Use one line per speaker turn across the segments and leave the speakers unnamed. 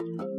Ndị nkuzi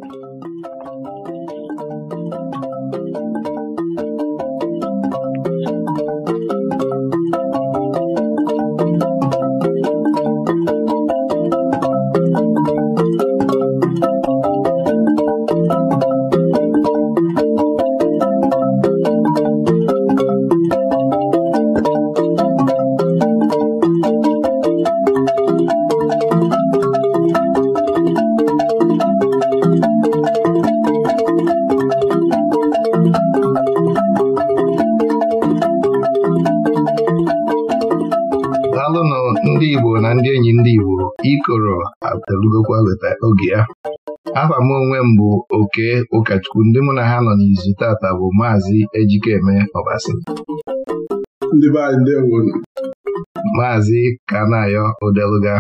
mụ onwe m bụ oke ụkọchukwu ndị mụ na ha nọ n'izu tata bụ maazị Ejikeme Ọbasi maazị Kanayo Odeluga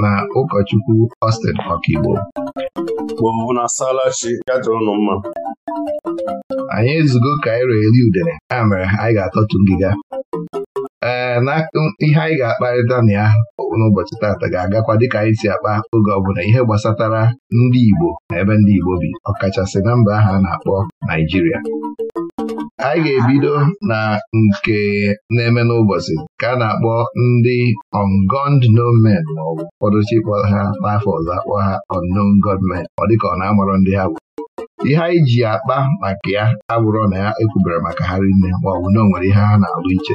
na ụkọchukwu Austin Ọkigbo anyị ezugo Kairo eri udene ya mere anyị ga atọtụ ngịga ee na ihe anyị ga-akparịta na ya n'ụbọchị taata ga-agakwa dịka anyị si akpa oge ọbụla ihe gbasatara ndị Igbo na ebe ndị Igbo bi ọkachasị na mba ahụ a na-akpọ Naijiria anyị ga-ebido na nke na-eme n'ụbọchị ka a na-akpọ ndị ungond nomen ma ọ bụ ụfọdụ chikpọ ha n'afọ ọzọ akpọ ha unknown gunmen ọ dịka ọ na-amarọ ndị ha bụ ihe anyị ji akpa maka ya abụrụ na ya ekwubere maka ha rinne ma ọ bụ na o nwere ihe ha na-alụ iche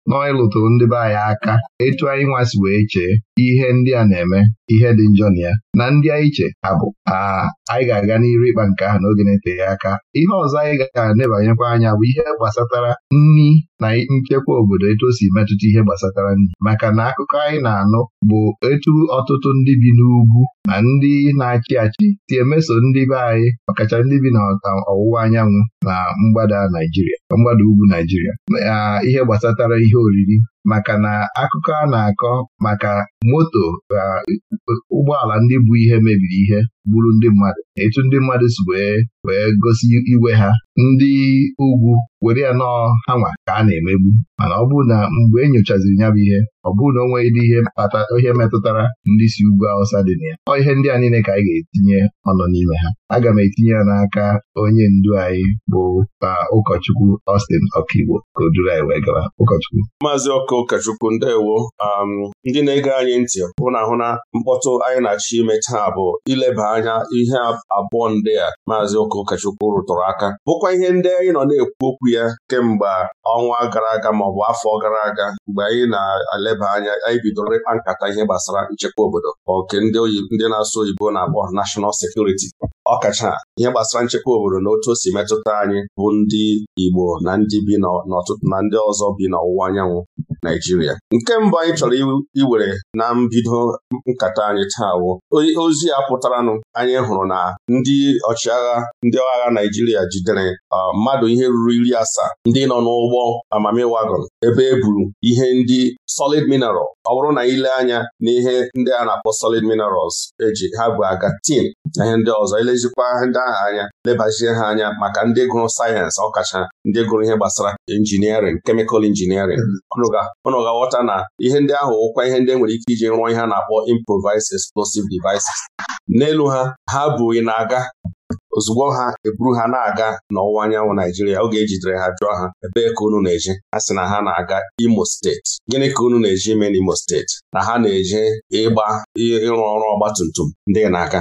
nọ ịlụtụrụ ndị be anyị aka etu anyị nwasị wee chee ihe ndị a na-eme ihe dị njọ na ya na ndị anyị che ha bụ anyị ga-aga n'iru ịkpa nke ahụ n'oge na-eteghị aka ihe ọzọ anyị ga-anebanyekwa anya bụ ihe gbasatara nri na nchekwa obodo etu o si metụta ihe gbasatara nri maka na akụkọ anyị na-anụ bụ etu ọtụtụ ndị bi n'ugwu na ndị na-achị achị si emeso ndị be anyị ọkacha ndị bi n'ọwụwa anyanwụ na mgbada Naijiria mgbada ugwu Naijiria ihe gbasatara ihe ihe oriri maka na akụkọ a na-akọ maka moto na uh, ụgbọala ndị bụ ihe mebiri ihe bụrụ ndị mmadụ etu ndị mmadụ si wee wee gosi iwe ha ndị ugwu were ya nọọ ha ka a na-emegbu mana ọ bụrụ na mgbe e nyochaziri ya bụ ihe ọ bụrụ na o nweghị dị ihe mkpata ihe metụtara ndị si ugwu Awụsa dị na ya ọ ihe ndị a niile ka anyị ga-etinye ọnụ n'ime ha aga m etinye ya n'aka onye ndu anyị bụ uh, ụkọchukwu Austin Ọkigbo ka o duru anyị wee gara ụkọchukwu
aka ụkọchukwu ndewo um, ndị na-ege anyị ntị hụ na hụ na mkpọtụ anyị na-achọ ime taa bụ ileba anya ihe abụọ ndị a maazị ụka ụkọchukwu rụtụrụ aka bụkwa ihe ndị anyị nọ na-ekwu okwu ya kemgbe ọnwa gara aga maọbụ afọ gara aga mgbe anyị na-eleba anya anyị bidoro ịkpa nkata ihe gbasara nchekwa obodo nke ndị ndị na-asụ oyibo na-akpọ nashọnal sekuriti ọkacha ihe gbasara nchekwa obodo na otu o si metụta anyị bụ ndị Igbo na ndị bi n'ọtụtụ na ndị ọzọ bi n'ọwụwa anyanwụ Naijiria nke mbụ anyị chọrọ iwere na mbido nkata anyị taa wụ ozi a pụtaranụ anyị hụrụ na ndị ọchịagha ndị agha Naijiria jidere mmadụ ihe ruru iri asaa ndị nọ n'ụgbọ amamiwagon ebe e buru ihe ndị solid mineral ọ bụrụ na ile anya n'ihe ndị a na-akpọ solid minerals eji ha bụ agatin na ihe ndị ọzọ elezikwa ndị ha anya lebazie ha anya maka ndị gụrụ sayensị ọkacha ndị gụrụ ihe gbasara injiniarịn kemịkal injiniarịn ọnụ hmm. ga-aghọta na ihe ndị ahụ ụkwa ihe ndị e nwere ike iji rụọ ihe a na-akpọ improvised explosive devices n'elu ha ha bụghị na-aga ozugbo ha eburu ha na-aga n'ọwụwa anyanwụ Naijiria oge ejidere ha jụọ ha ebee ka unu na-eje ha sị na ha na-aga Imo steeti gịnị ka unu na-eje ime n'Imo steeti na ha na-eje ịgba ịrụ ọrụ ọgba tum ndị n'aka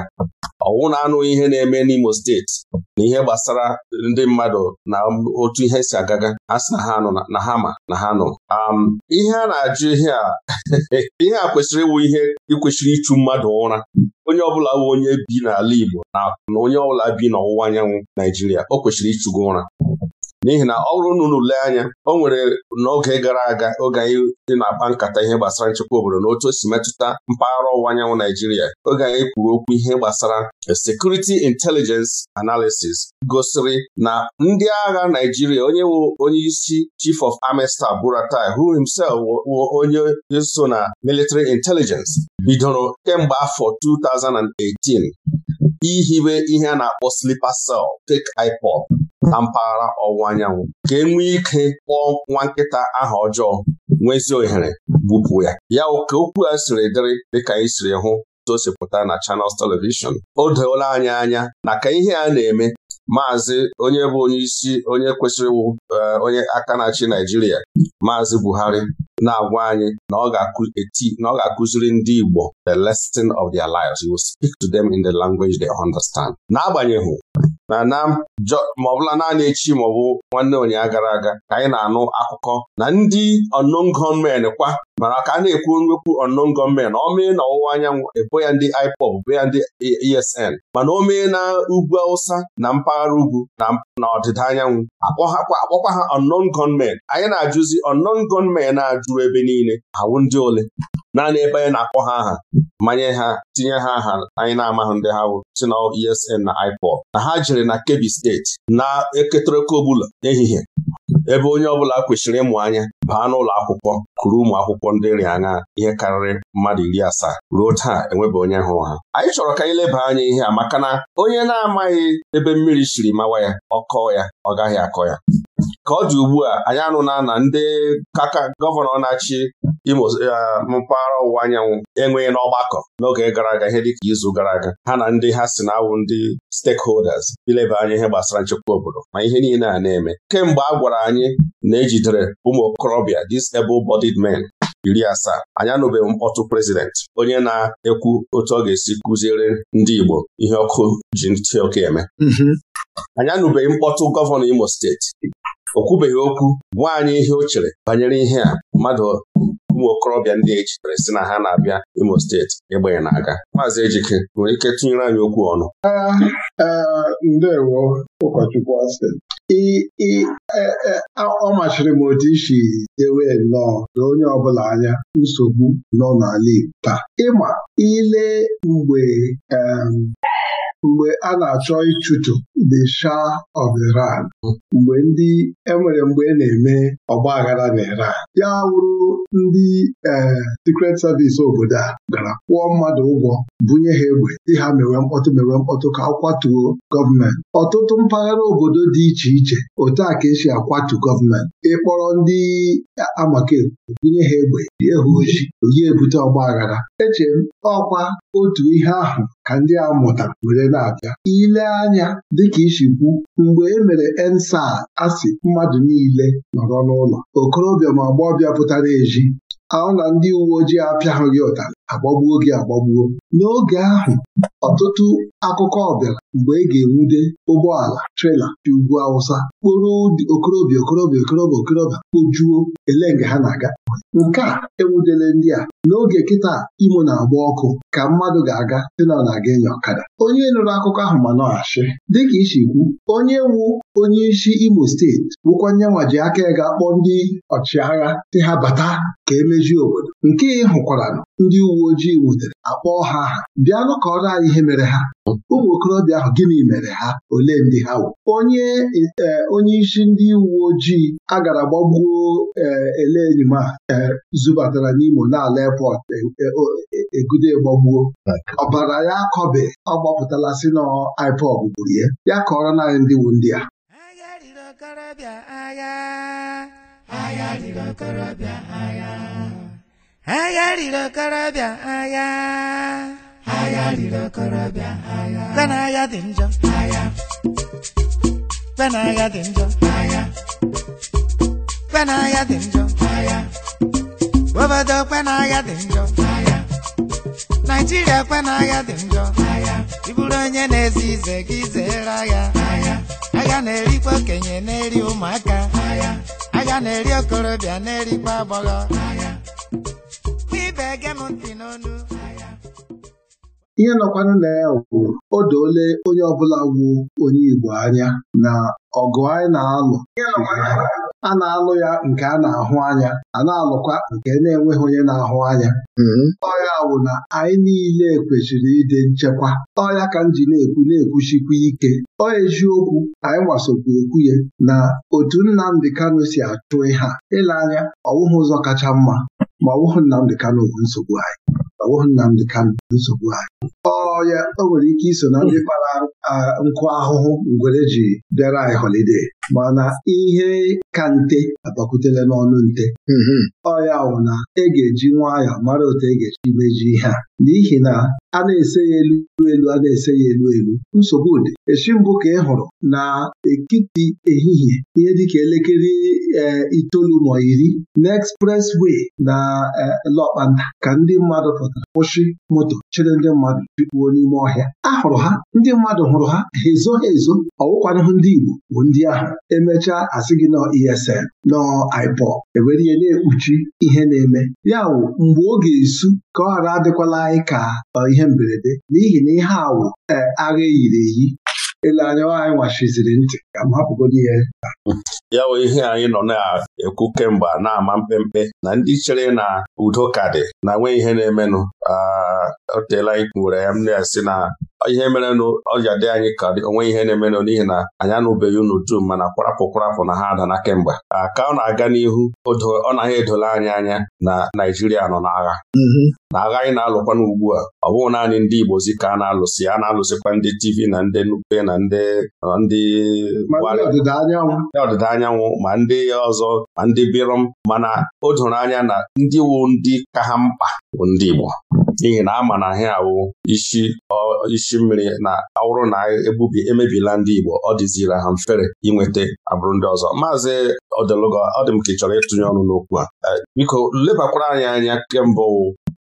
ọwụ na-anụghị ihe na-eme n'Imo steeti na ihe gbasara ndị mmadụ na otu ihe si agaga a sị na ha nọ na ha ma na ha nọ ihe a na-ajụ ihe a ihe a kwesịrị ịwụ ihe ịkwesịrị ịchụ mmadụ ụra onye ọbụla bụ onye bi n'ala Igbo na onye ọbụla bi n'ọwụwa anyanwụ Naijiria o kwesịrị ịchụgo ụra n'ihi na ọ bụrụ na unu anya o nwere n'oge gara aga oge anyị dị na-akpa nkata ihe gbasara nchekwa obodo na otu o si metụta mpaghara ọwụwa anyanwụ Naijiria oge anyị kwuru okwu ihe gbasara security intelligence analysis gosiri na ndị agha Naijiria onye wụ onye isi chief of army staff Buratai who himself wụ onye so na military intelligence bidoro kemgbe afọ 2018 ihibe ihe a na-akpọ slipa sel tek iPod, na mpaghara ọwụwa anyanwụ ka e nwee ike kpọọ nwa nkịta aha ọjọọ nwezi ohere gbupụ ya ya ka okwu a siri dịrị dịka anyị siri hụ tosipụta na chanels telivishọn? o doola anya anya na ka ihe a na-eme maazị onye bụ onye isi onye kwesịrị eh, onye aka na-achị Naijiria maazị Buhari na-agwa anyị na ọ ga-akụziri ndị Igbo the lesson of their lives. He will speak to them in the language they understand. N'agbanyeghị na na ma naanị echi maọbụ nwanne ụnyaahụ gara aga ka anyị na-anụ akụkọ na ndị unknown kwa mara ka a na-ekwu nwekwu unknown gunmen ọ mee na ọwụwa anyanwụ ebo ya ndị IPOB ebo ya ndị ESN e mana o mee na ugwu Awụsa na mpaghara ugwu na ọdịda anyanwụ akpọkwa ha unknown gunmen anyị na-ajụzi unknown a na-ajụrụ ebe niile awụ ndị ole naanị ebe anyị na-akpọ ha aha manye ha tinye ha aha anyị na-amaghị ndị ha si na ESN na iPod. na ha jere na Kebbi steeti na eketereka ọbụla n'ehihie ebe onye ọbụla kwesịrị ịmụ anya baa n'ụlọ akwụkwọ kụrụ ụmụ akwụkwọ ndị nri anya ihe karịrị mmadụ iri asaa ruo taa enwebe onye hụrụ ha anyị chọrọ ka anyị leba anya ihe a maka na onye na-amaghị ebe mmiri siri mawa ya ọkọọ ya ọ gaghị akọ ya ka ọ dị ugbu a anyị anụna na ndị kaka gọvanọ na-achị Imo eh, ah, mpaghara ọwụwa anyanwụ enweghị n'ọgbakọ n'oge gara aga ihe dịka izu gara aga ha na ndị ha si na-awụ ndị stakeholders ileba anya ihe gbasara nchekwa obodo ma ihe niile a na-eme kemgbe a gwara anyị na ejidere ụmụ okorobịa disable-bodied men iri asaa anyanụbeghị anụbeghị mkpọtụ prezidenti onye na-ekwu otu ọ ga-esi kụziere ndị Igbo ihe ọkụ ji ntị eme mhm. anyanụbeghị mkpọtụ gọvanọ Imo steeti o kwubeghị okwu gwa anyị ihe o chere banyere ihe a mmadụ ụmụ okorobịa ndị e chitere si na ha na-abịa Imo steeti ịgbanye na-aga maazị Ejike nwere ike tụnyere anyị okwu ọnụ
ndewo ụkọchukwu e, e, ọ machiri m otu isi
dewe nnọọ na onye ọbụla anya nsogbu nọ n'ala Igbo taa ịma ile mgbe mgbe a na-achọ ịchụtụ the Shah of Iran mgbe ndị enwere mgbe e na-eme ọgba aghara na Iran ya wụrụ ndị ee eh, Secret Service obodo a gara kwụọ mmadụ ụgwọ bunye ha egbe dị ha mewe mkpọtụ mewe mkpọtụ ka akwatuo gọọmenti ọtụtụ mpaghara obodo dị iche iche otu a ka esi akwatu gọọmenti ịkpọrọ ndị amakekwu bunye ha egbe jie ha ojii onye ebute ọgba aghara Eche m ọkwa otu ihe ahụ ka ndị a mụta were na-abịa ile anya dịka isi kwu mgbe e mere ensa asị mmadụ niile nọrọ n'ụlọ okorobịa ma ọbịa pụtara eji ahụ na ndị uwe ojii apịaghị ụtarị agbagbuo gị agbagbuo n'oge ahụ ọtụtụ akụkọ ọbịara mgbe ị ga-enwude ụgbọala trela dị ugwu Awụsa kporo okorobịa okorobịa okorobịa okorobịa kpojuo ele nga ha na-aga nke a enwudele ndị a n'oge kịta imo na-agba ọkụ ka mmadụ ga-aga dị na ọ na-aga ịnya ọkada onye nụrụ akụkọ ahụ ma nọghachị dịka isi kwu onye wu onye isi Imo steeti wụkwanye nwa ji aka ya ga-akpọ ndị ọchịagha dị ha bata ka emezie obodo nke ị hụkwara ndị uwe ojii nwutere akpọọ ha aha bịanụ ka anyị ihe mere ha ụmụ okorobịa ahụ gịnị mere ha ole ndị ha wụ onye e, onye isi ndị uwe ojii e, a gara gbagbuo ele a zubatara n'Imo n'ala airport e, egudo gbagbuo ọbara ya akọbe ọ gbapụtala si na IPOB gburu ya ya kọrọ naanị ndị
wu ndị a agha riri okorobịa agha be dị njọ agha be dị njọ agha be dị njọ agha obodo kwe dị njọ agha naijiria kwe dị njọ agha Iburu onye na-ezi ize gị zeere agha agha na-erikwa okenye na-eri ụmụaka agha na-eri okorobịa na-erikwa agbọghọ ibe ege m ntị n'onu
ihe nọkwanụ na ya bụ o doole onye ọbụla wu onye Igbo anya na ọgụ anyị na-alụ a na-alụ ya nke a na-ahụ anya a na-alụkwa nke na-enweghị onye na-ahụ anya mm-hmm. ọya wụ na anyị niile kwesịrị ịdị nchekwa ọya ka m ji na-ekwu na-ekwuchikwa ike ọya eziokwu anyị gbasokwa ekwu ya na otu Nnamdị Kano si atụ ha ile anya ọwụghị ụzọ kacha mma ma ọwụhụ Nnamdị Kanụ bụ nsogbu anyị Nnamdị bụ nsogbu anyị ọ ya o nwere ike iso na ndị kpara nkụ ahụhụ ngwere ji bịara anyị holide mana ihe ka nte abakwutela n'ọnụ nte mm-hmm. ọ ya wụ na e ga-eji nwayọọ mara otu e ga-eji meji ihe a n'ihi na a na-ese ya elu elu a na-ese ya elu elu nsogbu dị echi mbụ ka ị hụrụ na ekiti ehihie ihe dịka elekere Eh, itoolu ma iri way na eh, Lọkpanda ka ndị mmadụ pụtara kwụsị moto chere ndị mmadụ jikpuo n'ime ọhịa a hụrụ ha ndị mmadụ hụrụ ha ha ezo ha ezo ọwụkwanahụ ndị Igbo bụ ndị ahụ emechaa asị gị nọ ESN nọ IPO ewere ihe na-ekpuchi ihe na-eme ya wụ mgbe ọ ga-esu ka ọ ghara adịkwala anyị ka ihe mberede n'ihi na ihe wụ eh, agha eyiri eyi ele anya anyị nwachiziri
ntị ka m hapụgodi ihe
ya bụ ihe anyị nọ na-ekwu kemgbe na-ama mpempe na ndị chere na udo ka dị na nwee ihe na-emenụ o anyị kwuwere ya m na esi na ihe na ọja dị anyị ka onwe ihe na-emenụ n'ihi na anyị anụbeghị unu dum mana kwarapụ kwarapụ na ha adana kemgbe ka ọ na-aga n'ihu ọ naghị edola anyị anya na Naijiria nọ n'agha mhm. na agha anyị na-alụkwana ugbu a ọ bụghị naanị ndị Igbozi ka a na-alụsị a na-alụsịkwa ndị TV na ndị Nupe na ndị ndị ọdịda anyanwụ ma ndị ọzọ ma ndị birom mana o doro anya na ndị wu ndị ka ha mkpa bụ ndị Igbo n'ihi na a ma na ahịa awụ isi isi mmiri na awụrụ na e ebubi emebila ndị Igbo ọ dịzira ha mfere inweta abụrụ ndị ọzọ maazị Odelugo ọ dị m ka ị chọrọ ịtụnye ọnụ n'okwu a biko lebakwara anyị anya kemgbe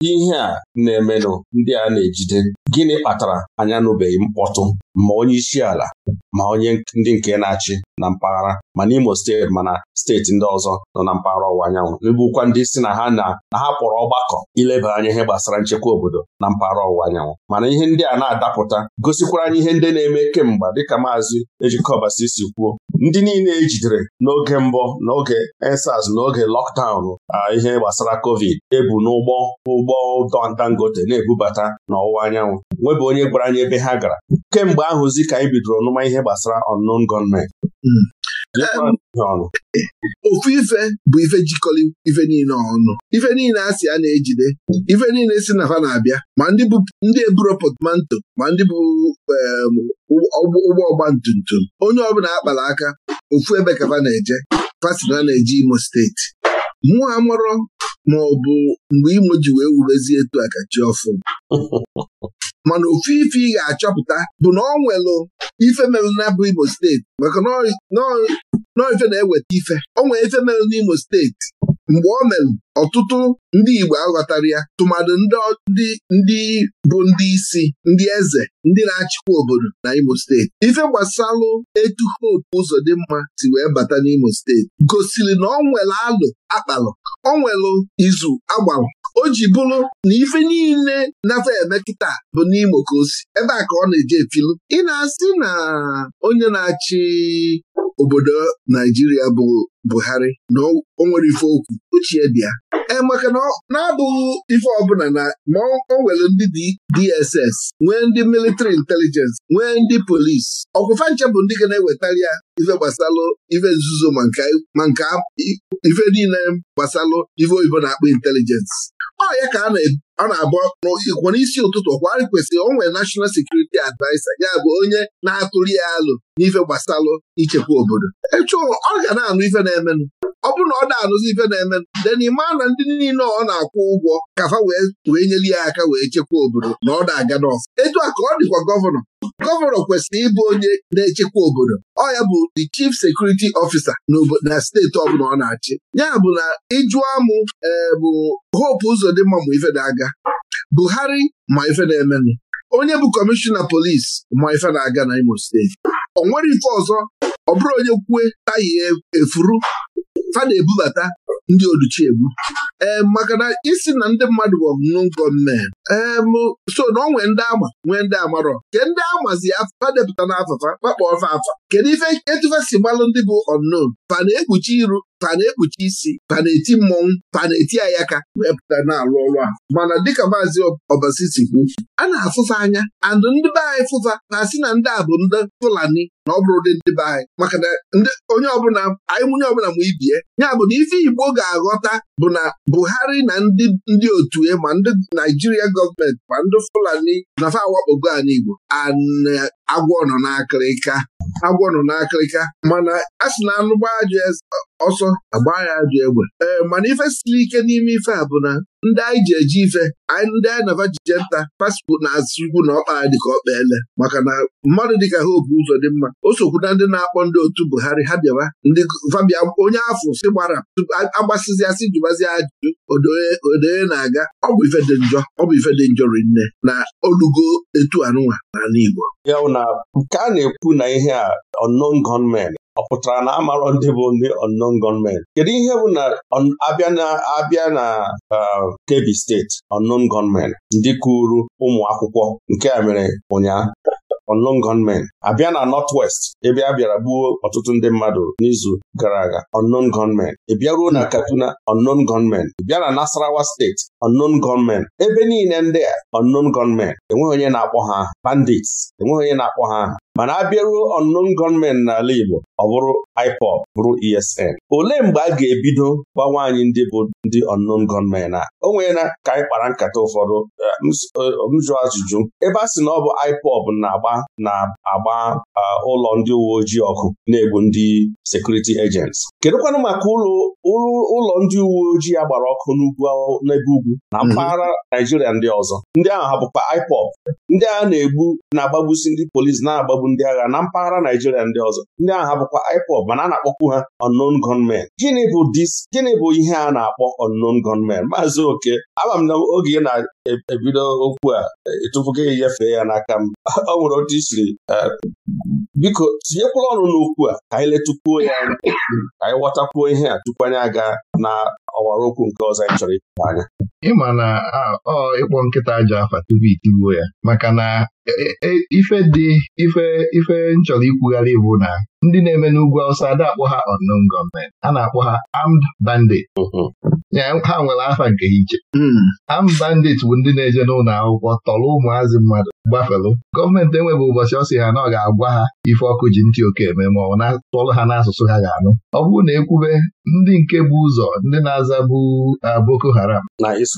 ihe a na-emenụ ndị a na-ejide gịnị kpatara anya anụbeghị mkpọtụ ma onye isi ala ma onye ndị nke na-achị na mpaghara ma Imo steeti mana steeti ndị ọzọ nọ na mpaghara ọwụwa anyanwụ ebukwa ndị si na ha na ha kpọrọ ọgbakọ ileba anya ihe gbasara nchekwa obodo na mpaghara ọwụwa anyanwụ mana ihe ndị a na-adapụta gosikwara anyị ihe ndị na-eme kemgbe dịka maazị ejikọbasi si kwuo ndị niile ejidere n'oge mbụ n'oge ensas n'oge lọkdaụn ihe gbasara covid ebu n'ụgbọ ụgbọ dangote na-ebubata n'ọwụwa anyanwụ nwebụ onye gwara anyị ebe ha gara kemgbe ahụzi ka anyị bidoro ọnụma ihe gbasara unknown
gọọmenti ofu ife bụ ife jikọrọ ife niile ọnụ ife niile a a na-ejide ife niile si na fa na-abịa ma ndị bụ ndị eburo potmanto ma ndị bụ ụgbọ ọgba tum onye ọbụla akpara aka ofu ebe ka na-eje fasina na-eje Imo steeti mụ amụrọ ma ọ bụ mgbe Imo ji wee wurezie etu a ka chi ọfụ mana ofu ife ị ga-achọpụta bụ na ọ nwelụ ife mere na bụ Imo steeti maka nọ na-eweta ife ọ nwere ife mere n'Imo steeti mgbe ọ merụ ọtụtụ ndị Igbo aghọtara ya tụmadụ ndị bụ ndị isi ndị eze ndị na-achịkwa obodo na Imo steeti ife gbasalụ etu Hope mma si wee bata n'Imo steeti gosiri na ọ nwere alụ akpalụ ọ nwelụ izu agbalụ o ji bụrụ na ife niile nafe eme kịta bụ n'Imo ka ebe a ka ọ na-eje efilu ị na-asị na onye na-achị obodo Naijiria bụ Buhari na o nwere ife okwu Uchie bịa. ya e, maka na abụghị ife ọbụla na ma o nwere ndị DSS nwee ndị military intelligence nwee ndị polisi ọkwụfa nche bụ ndị ga na-ewetara ya ife gbasalụ ife nzuzo ma nke ife niile gbasalụ ife oyibo na-akpọ intelijensị ọ ya ka a na-abụ n'ikwo n'isi ụtụtụ kwa kwesịrị o nwere National Security Adviser ya bụ onye na-atụrụ ya alụ n'ife gbasalụ ichekwa obodo echu ọ ga na-anụ ife na-emenụ ọ bụrụ na ọ na-anụzi ife na-emenụ denima na ndị niile ọ na-akwụ ụgwọ kafa wee nyere ya aka wee chekwa obodo na ọ na-aga n'ọfụ etu a ka ọ dịkwa gọvanọ gọvanọ kwesịrị ịbụ onye na-echekwa obodo ọ ya bụ the chief security officer na steeti ọbụla ọ na-achị ya bụ na ịjụọ mụ e, bụ Hope Uzodimma ma ife na-aga Buhari ma ife na-emenụ onye bụ kọmishọna polisi ma ife na-aga na Imo steeti ọ nwere ife ọzọ ọ bụrụ onye kwue taya efuru fa na-ebubata ndị oduchi egbu ee maka na isi na ndị mmadụ bụ ọmụmụ nkọ mme so na ọ nwee ndị ama nwee ndị amarọ ke ndị amazi na n'afọfa kpakpọ ọfa afa kedu ife etufe si gbalụ ndị bụ unknown fa na-ekpuchi iru fa na-ekpuchi isi fa na-eti mmọnwụ fa na-eti ayaka wee pụta na-alụ ọrụ a. mana dịka maazị ọbasi si kwu a na-afụfa anya and ndị be anyị fụfa na asị na ndị a bụ ndị Fulani na ọ bụrụ ụdị ndị be anyị maka na onye ọbụla anyị nwunye ọbụla ma ibie ya bụ na ife Igbo ga-aghọta bụ na Buhari na ndị otu ya e ma ndị Naijiria gọọmenti ma ndị Fulani na awakpogo ala Igbo agwọ nọ n'akịrịka agwọ nọ n'akịrịka mana a sị na anụ gbaa eze. ọsọ agba ya ajọ egbe ee mana ife siri ike n'ime ife a bụ na ndị anyị ji eji ife anyị ndị anyị nava jije nta pasipụ na-asụ ikwu na ọkpa ya dịka ọkpa ele maka na mmadụ dịka ha obu ụzọ dị mma o sokwu na ndị na-akpọ ndị otu Buhari ha bịawa ndị fabia onye afọ si gbara agbasizi asị jụbazi ajụjụ odoye e na-aga ọ bụ ife dị njọ ọ bụ ife dị njọ rinne na olugo etu anụnwa
n'ala Igbo ya na nke a na-ekwu na ihe a unknown gunmen ọ pụtara na amarọ ndị bụ ndị unknown gunmen kedu ihe bụ na abịa na uh, Kebbi steeti unknown gunmen ndị kụrụ ụmụ akwụkwọ nke a mere ụnyaahụ unknown gunmen abịa na nọt Northwest ebe a bịara gbuo ọtụtụ ndị mmadụ n'izu gara aga unknown gunmen ị bịaruo na Katuna, unknown gunmen ị bịa na Nasarawa steeti unknown gunmen ebe niile ndị a unknown gunmen enweghị onye na-akpọ ha bandits enweghị onye na-akpọ ha mana abịaruo bịaruo ọnụnụ gọọmenti n'ala Igbo ọ bụrụ IPOP bụrụ ESN olee mgbe a ga-ebido gbanwe anyị ndị bụ ndị ọnụnụ gọọmenti a o nwere na ka anyị kpara nkata ụfọdụ eh, m eh, jụ ajụjụ ebe a sị na ọ bụ IPOP na-agba na-agba eh, ụlọ ndị uwe ojii ọkụ na-egbu ndị sekuriti ejents kedụkwanụ maka ụlọ ndị uwe ojii a gbara ọkụ n'ebe ugwu na mhm. mpaghara Naijiria ndị ọzọ ndị ahụ hapụkwa IPOP. ndị agha na-egbu na-agbagbusi ndị polisi na-agbagbu ndị agha na mpaghara Naijiria ndị ọzọ ndị agha bụkwa IPOB mana a na-akpọkwu ha unknown gunmen gịnị bụ dis gịnị bụ ihe a na-akpọ unknown gunmen maazị oke ama m na oge ị na-ebido okwu a ịtụfuga gị nyefee ya n'aka m ọ nwere otu isiri e, biko tinyekwala ọnụ n'okwu a ka anyị letukwuo ya ka anyị ghọtakwuo ihe a tupu anyị aga na ọwara okwu nke ọzọ anyị chọrọ ịpụta anya
ịma na ọ ịkpọ nkịta aja afa tupu itigbuo ya maka na e, e, e, ife dị ife ife nchọrọ ikwugharị bụ na ndị na-eme n'ugwu awụsa ada akpọ ha unknown gọọmenti a na-akpọ ha armed bandit mm-hmm. ha nwere afa nke iche am hmm. bụ ndị na-eje n'ụlọ akwụkwọ tọrọ ụmụazị mmadụ gbafelu gọọmenti enweghị ụbọchị ọ sị ha na ọ ga-agwa ha ife ọkụ ji ntị oke eme ma ọ na-atọrọ ha n'asụsụ ha ga-anụ ọ bụrụ na ekwube ndị nke bụ ụzọ ndị na-aza bụ Boko Haram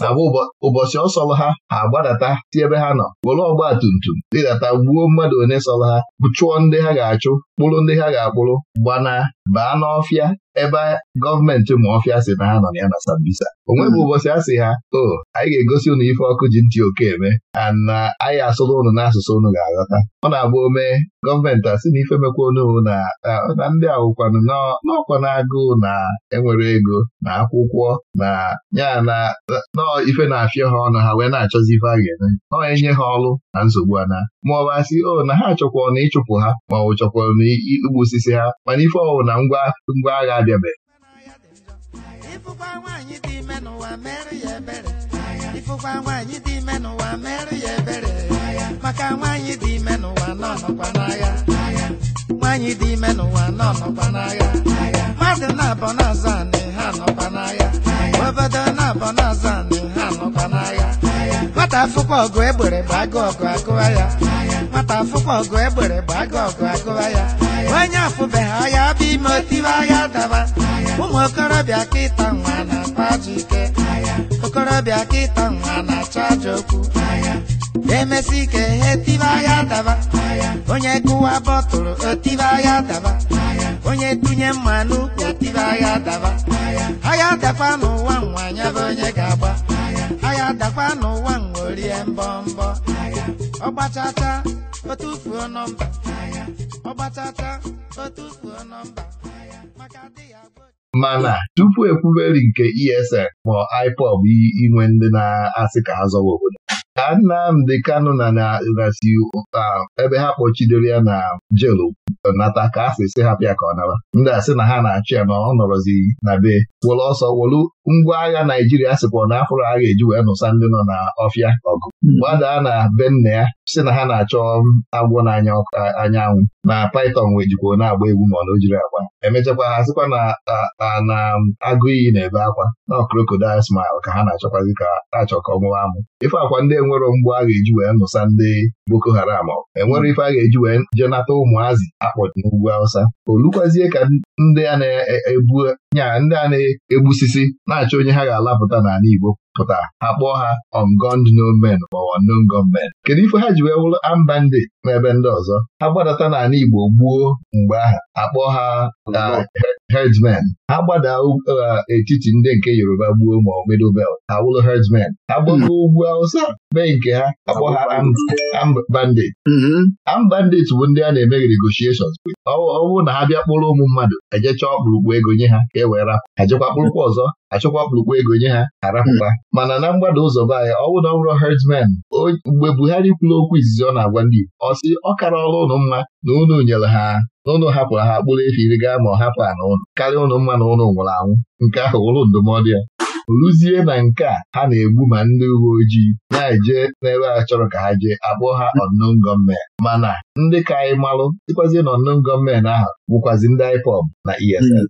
abụ ụbọchị ọ ha ha agbadata si ebe ha nọ were ọgba tum tum ịdata gbuo mmadụ one sọrọ ha chụọ ndị ha ga-achụ kpụrụ ndị ha ga-akpụrụ gbanaa baa n'ọfịa ebe gọọmenti Maofia si na ha nọ ya na Sambisa o nweghị hmm. ụbọchị a sị ha o oh, anyị ga-egosi ụnụ ife ọkụ ji ntị oke eme ana uh, anyị asụrụ ụnụ n'asụsụ ụnụ ga-aghọta ọ na-agba ome gọọmenti sị na ife mekwa unu na na ndị awụkwanụ n'ọkwa na-agụụ na enwere ego na akwụkwọ na ya na nọọ ife na-afịa ha ọnụ ha wee na-achọzi ife a ga-eme nọọ enye ha ọrụ na nsogbu ana ma ọ bụ asị o oh, na ha chọkwara na ịchụpụ ha ma ọ bụ igbu osisi ha mana ife ọwụ na ngwa agha adịabeghị
ịfụkwa nwaanyị dị ime mere nwaanyị mere ya ebere maka nwaanyị dị ime n'ụwa nọ nọkwa n'agha nwaanyị dị ime n'ụwa nọ nọkwa n'agha mmadụ na-abọ anị ha nọkwa n'agha obodo na-abọ anị ha nọkwa e ya nwata afụkwa ọgụ egbere bụ agụ ọgụ agụwa ya onye afụbeghị ahịa bụ ime otiwe ahịa daba ụmụ okorobịa kịta nwa na-akpa ajọ ike okorobịa kịta nwa na-achọ ajọ okwu emesi ike ihe tiwe ahịa daba onye gụwa bọtụlụ otiwe ahịa daba onye dunye mma n'ukwu otibe agha daba agha dakwa n'ụwa nwa anya onye ga-agba agha dakwa n'ụwa nwa orie mbọ mbọ ọ gbachacha o nọmba
mana tupu ekwuberi nke ESL ma IPOB inwe ndị na-asị ka ha zọwa obodo ka Nnamdi Kanu na na um, ebe ha kpọchidoro ya na jelu nata ka a sị sị ha ka ọ naba ndị a sị na ha na-achụ ya na ọ nọrọzi na be were ọsọ wolu ngwa agha Naijiria sịkwa na afụrụ agha eji wee nụsa ndị nọ na ọfịa ọgụ hmm. gbadaa na be nna ya si na ha na-achọ agwọ n'anya anyanwụ na Python wee jikwa na-agba egwu ma ọ na o jiri agba emechakwa ha sịkwa na na agụ iyi na-ebe akwa na crocodile smile ka ha na-achọkwazi ka achọ ka ọmụwa amụ ife akwa ndị enwero mgbu agha eji wee nụsa ndị Boko Haram enwere ife agha eji wee jenata ụmụazị akpọchi n'ugwu Awụsa olukwazie ka ndị a na-ebu nyaa ndị a na-egbusisi na-achọ onye ha ga-alapụta n'ala Igbo pụta ha kpọọ ha ongond nomen ma ongond kedu ife ha ji wee wụrụ ambandi n'ebe ndị ọzọ ha gbadata n'ala Igbo gbuo mgbe aha akpọọ ha uh, hedmen ha gbada uh, etiti ndị nke Yoruba gbuo ma ọ middle belt ha wụrụ herdsmen ha gbago hmm. ugwu awụsa mee nke ha akpọ ha ambandit mm-hmm. ambandit bụ ndị a na-eme negotiations ọ bụrụ na ha bịa kpọrọ ụmụ mmadụ ejecha ọkpụrụkpụ ego nye ha e wee rapụ ha kpụrụkwa ọzọ achọkwa kpụrụkwa ego nye ha arapụta mana na mgbada ụzọ be anyị ọ bụ na ọ bụrụ herdsmen mgbe Buhari kwuru okwu izizi ọ na-agwa ndị Igbo ọ sị ọ kara ọrụ ụnụ mma na ụnụ nyere ha na ụnụ hapụrụ ha kpụrụ efi iri gaa ma ọ hapụ ha na ụnụ karịa ụnụ mma na ụnụ nwụrụ anwụ nke ahụ ụlụ ndụmọdụ ya rụzie na nke a ha na-egbu ma ndị uwe ojii na-eje n'ebe a chọrọ ka ha jee akpọọ ha unknown gunmen mana ndị ka anyị malụ dịkwazi na ahụ bụkwazi ndị IPOB na ESN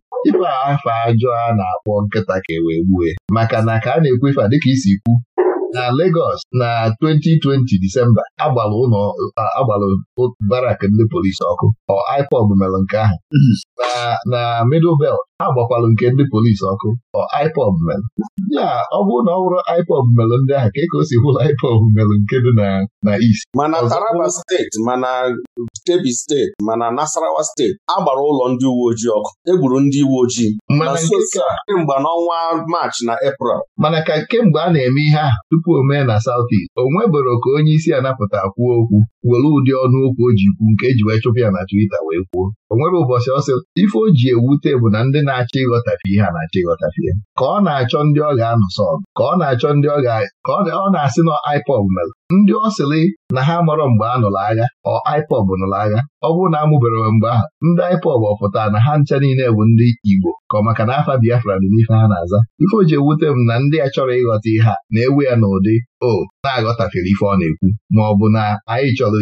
a afa ajọ a na-akpọ nkịta ka e wee gbue maka na ka a na-ekwu ife a dịka isi kwu na Lagos na 2020 Disemba agbara ụlọ agbara barak ndị polisi ọkụ ọ IPOB mere nke ahụ mhm. na Middle Belt ha gbakwalụ nke ndị polisi ọkụ ọ IPOB mere ya ọ bụrụ na ọ bụrụ IPOB mere ndị ahụ ka e ka o si hụla IPOB mere nke dị na na East mana
Taraba steeti mana Kebbi steeti mana Nasarawa steeti agbara ụlọ ndị uwe ojii ọkụ egburu ndị uwe ojii mana kemgbe n'ọnwa Maachị na
Eprel mana ka kemgbe a na-eme ihe ahụ tupu o na South East o nweboro ka onye isi anapụta kwuo okwu were ụdị ọnụokwu o ji kwu nke eji wee chụpụ ya na Twitter wee kwuo Onwere nwere ụbọchị ọsị ife o ji ewute bụ na ndị na-achọ ịghọtafe ihe a na-achọ ịghọtafe ya ka ọ na-achọ ndị ọ ga anụ sọ ka ọ na-achọ ndị ọ ga-ọ na-asị na IPOB mere ndị ọ na ha marọ mgbe a nụrụ agha ọ IPOB nụrụ agha ọ bụrụ na amụbereghị mgbe ahụ ndị IPOB ọ pụtara na ha ncha niile bụ ndị Igbo ka ọ maka na afa Biafra dị n'ife ha na-aza ife o ji ewute m na ndị a chọrọ ịghọta ihe a na-ewe ya n'ụdị o na-aghọtafere ife ọ na-ekwu ma ọ bụ na anyị chọrọ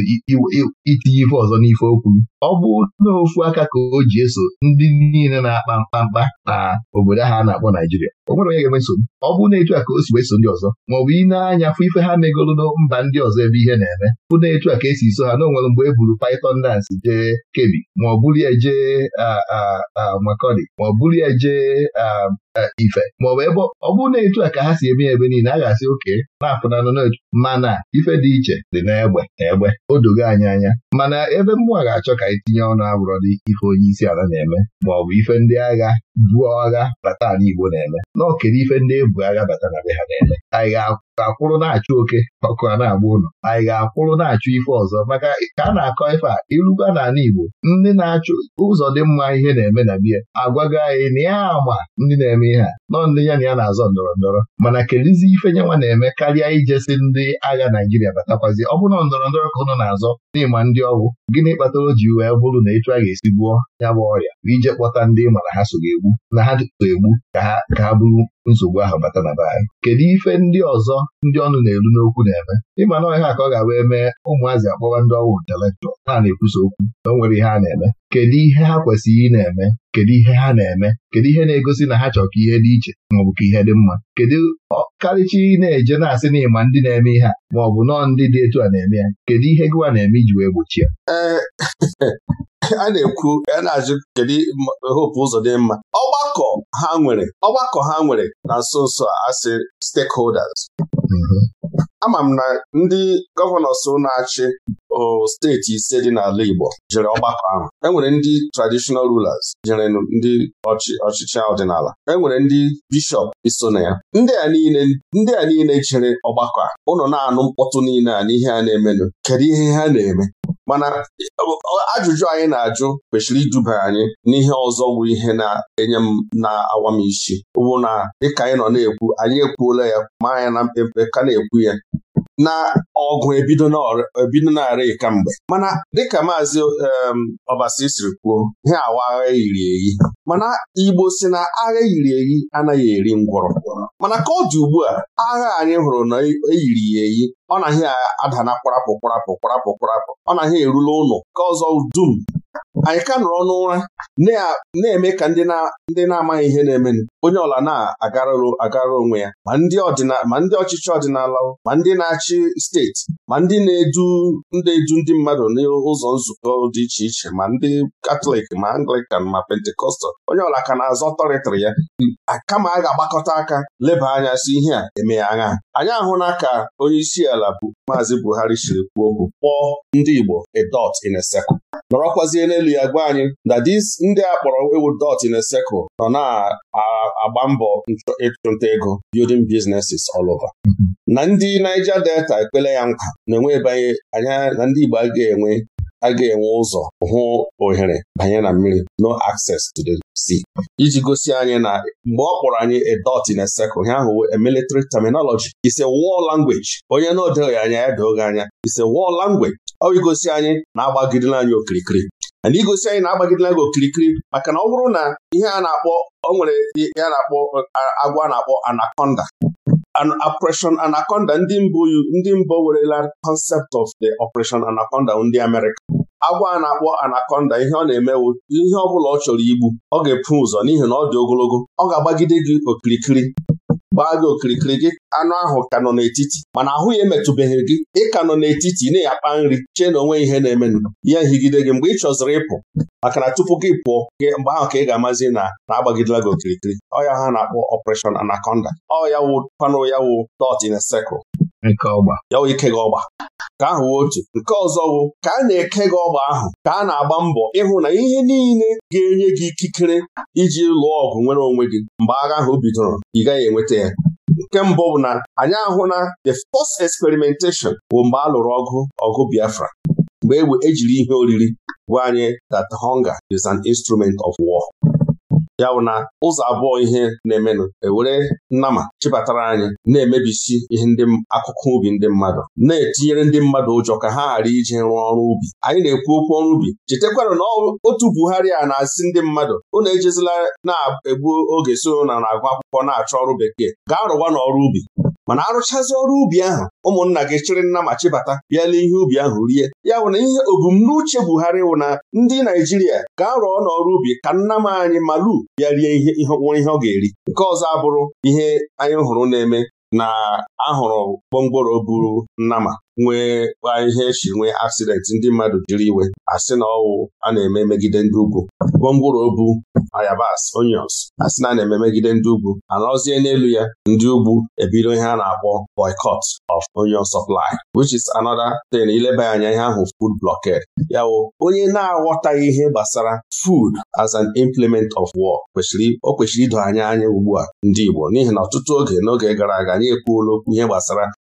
itinye ife ọzọ n'ife okwu ọ bụ n'ofu aka ka o ji eso ndị niile na-akpa mkpamkpa na obodo ha na-akpọ Naijiria o nwere onye ga-eme nsogbu ọ bụ na etu a ka o si ndị ọzọ ma ọ bụ ị na-anya fụ ife ha megolu mba mba ndị ọzọ ebe ihe na-eme bụ na-etu a ka esi so ha na onwere mgbe e buru Python dance jee Kebbi ma ọ bụrụ ya jee amakọdi ma ọ bụrụ ya jee Ife ma ọ bụ ebe ọ bụrụ na etu a ka ha si eme ya ebe niile a ga-asị oke na-apụnanụ n'etu mana ife dị iche dị n'egbe egbe o dogo anyị anya mana ebe mmụọ ga-achọ ka anyị tinye ọnụ abụrọ dị ife onye isi ala na-eme ma ọ bụ ife ndị agha buo agha bata ala Igbo na-eme n'ọkere ife ndị ebu agha bata na be ha na-eme anyị ga-akwụrụ na-achụ oke ọkụ a na-agba ụlọ anyị ga-akwụrụ na-achụ ife ọzọ maka ka a na-akọ ife a irugwa n'ala Igbo ndị na-achụ ụzọ dị mma ihe na-eme na biya agwago anyị na ya ama ndị na-eme ihe a nọ ndị ya na ya na-azọ ndọrọ ndọrọ mana kelizi ife nwa na-eme karịa ijesi ndị agha Naijiria batakwazi ọ bụrụ ndọrọ ndọrọ ka ụnụ na-azọ n'ịma ndị ọgwụ gịnị kpatara o ji wee bụrụ na etu a ga-esi ya bụ ọrịa ije kpọta ndị mana ha so ga-egbu na ha ga-egbu ka ha bụrụ nsogbu ahụ bata na be anyị kedu ife ndị ọzọ ndị ọnụ na-elu n'okwu na-eme ịma na ọhịa ka ọ ga-abịa mee ụmụazị akpọwa ndị ọwụ intelektual ha na-ekwusa okwu na nwere ihe a na-eme kedu ihe ha kwesịrị ị na-eme kedu ihe ha na-eme kedu ihe na-egosi na ha chọrọ ka ihe dị iche maọbụ ka ihe dị mma kedu ọkarịcha ị na-eje na-asị na ịma ndị na-eme ihe a maọbụ nọọ ndị dị etu a na-eme ya kedu ihe gịwa na-eme iji wee gbochie eh, a na-ekwu a na-ajụ
kedu ụzọ dị mma ọgbakọ ha nwere ọgbakọ ha nwere na nso nso a asị stakeholders mm-hmm. ama m na ndị gọvanọs na-achị steeti ise dị n'ala Igbo jere ọgbakọ ahụ enwere ndị traditional rulers jere ndị ọchịchị ọdịnala enwere ndị bishọp iso na ya ndị a niile jere ọgbakọ a ụnọ na-anụ mkpọtụ niile a n'ihe a na-emenụ kedu ihe ha na-eme mana ajụjụ anyị na-ajụ kwesịrị iduba anyị n'ihe ọzọ bụ ihe na-enye m na-awa m isi bụ na dịka anyị nọ na-ekwu anyị ekwuola ya ma anya na mpempe ka na-ekwu ya na ọgụ ebido na-arị kamgbe mana dịka maazị Ọbasi siri kwuo ihe awa agha yiri eyi mana Igbo si na agha yiri eyi anaghị eri ngwọrọ mana ka ọ dị ugbu a agha anyị hụrụ na eyiri e ya eyi ọ naghị ada na kparapụ kparapụ kparapụ ọ naghị erule ụnụ ka ọzọ dum anyị ka nọrọ n'ụra na-eme ka ndị na-amaghị ihe na-emenụ onye ọla na-agararụ agara onwe ya ma ndị ọchịchị ọdịnala ma ndị na-achị steeti ma ndị na-edu na-edu ndị mmadụ n'ụzọ nzukọ dị iche iche ma ndị katọlik ma anglikan ma pentikọstal onye ọla ka na-azọ tọrịtịrị ya kama a ga-agbakọta aka leba anya si ihe a eme ya agha anyị ahụla ka onye isi ala bụ maazị Buhari siri kwuo bụ: kpọọ ndị Igbo a dot in a circle nọrọkwazie n'elu Bibụl ya gwa anyị na ndị a kpọrọ ewu dot in a nọ na-agba mbọ ịchụnta ego building businesses all over. Mm-hmm. na ndị Niger Delta ekpele ya nkwa na-enwe ịbanye anya na ndị Igbo aga ga-enwe a ga-enwe ụzọ hụ ohere banye na mmiri no access to the sea iji gosi anyị na mgbe ọ kpọrọ anyị a dot in a circle ihe ahụ a military terminology is a war language onye na-odoghị anya ya doghị anya is a war language ọ igosi anyị na-agbagidela anyị okirikiri na igosi anyị na-agbagidela gị okirikiri maka na ọ bụrụ na ihe a na-akpọ o nwere ya na-akpọ agwa a na-akpọ anaconda operation anaconda ndị mbụ ndị mbụ werela concept of the operation anaconda ndị Amerịka agwa a na-akpọ anaconda ihe ọ na-emewu ihe ọ bụla ọ chọrọ igbu ọ ga-epu ụzọ n'ihi na ọ dị ogologo ọ ga-agbagide gị okirikiri gbaa gị okirikiri gị anụ ahụ ka nọ n'etiti mana ahụ ya emetụbeghị gị ị ka nọ n'etiti ị na-akpa nri chee na onwe ihe na-emenụ ya higide gị mgbe ị chọziri ịpụ maka na tupu gị pụọ gị mgbe ahụ ka ị ga-amazi na na-agbagidela gị okirikiri ọ ya ha na-akpọ ọpration anaconda ọ ya wụ panụ ya wụ dot in ya wụ ike gị ọgba ka ahụ wee otu nke ọzọ bụ ka a na-eke gị ọgba ahụ ka a na-agba mbọ ịhụ na ihe niile ga-enye gị ikikere iji lụọ ọgụ nwere onwe gị mgbe agha ahụ bidoro ị gaghị enweta ya nke mbụ bụ na anyị ahụ na the first experimentation bụ mgbe a lụrụ ọgụ ọgụ Biafra mgbe ejiri e ihe oriri gwa anyị that hunger is an instrument of war ya bụ na ụzọ abụọ ihe na-emenụ ewere nnama chịbatara anyị na-emebisi ihe ndị akụkụ ubi ndị mmadụ na-etinyere ndị mmadụ ụjọ ka ha ghara ije rụọ ọrụ ubi anyị na-ekwu okwu ọrụ ubi chetakwarụ na otu Buhari a na-asị ndị mmadụ unu ejezila na-egbu oge so na na-agụ akwụkwọ na-achọ ọrụ bekee gaa rụwa n'ọrụ ubi mana arụchazi ọrụ ubi ahụ ụmụnna gị chịrị nna ma chịbata bịa n'ihe ubi ahụ rie ya bụ na ihe obumnuche Buhari wụ na ndị Naijiria ga rụọ n'ọrụ ubi ka nna m anyị malu bịa rie ihe nwere ihe ọ ga-eri nke ọzọ abụrụ ihe anyị hụrụ na-eme na ahụrụ gbomgboro buru nnama nwekwa ihe echi nwee aksidenti ndị mmadụ jiri iwe asị na ọwụ a na-eme megide ndị ugwu gwongworo obu ayabas onions asị na a na-eme megide ndị ugwu anọzie n'elu ya ndị ugwu ebido ihe a na-akpọ boycott of onion supply which is another thing ileba anya ihe ahụ food blockade ya wụ onye na-aghọtaghị ihe gbasara food as an implement of war kwesịrị o kwesịrị ido anya anya ugbu a ndị Igbo n'ihi na ọtụtụ oge n'oge gara aga anyị ekwuola okwu ihe gbasara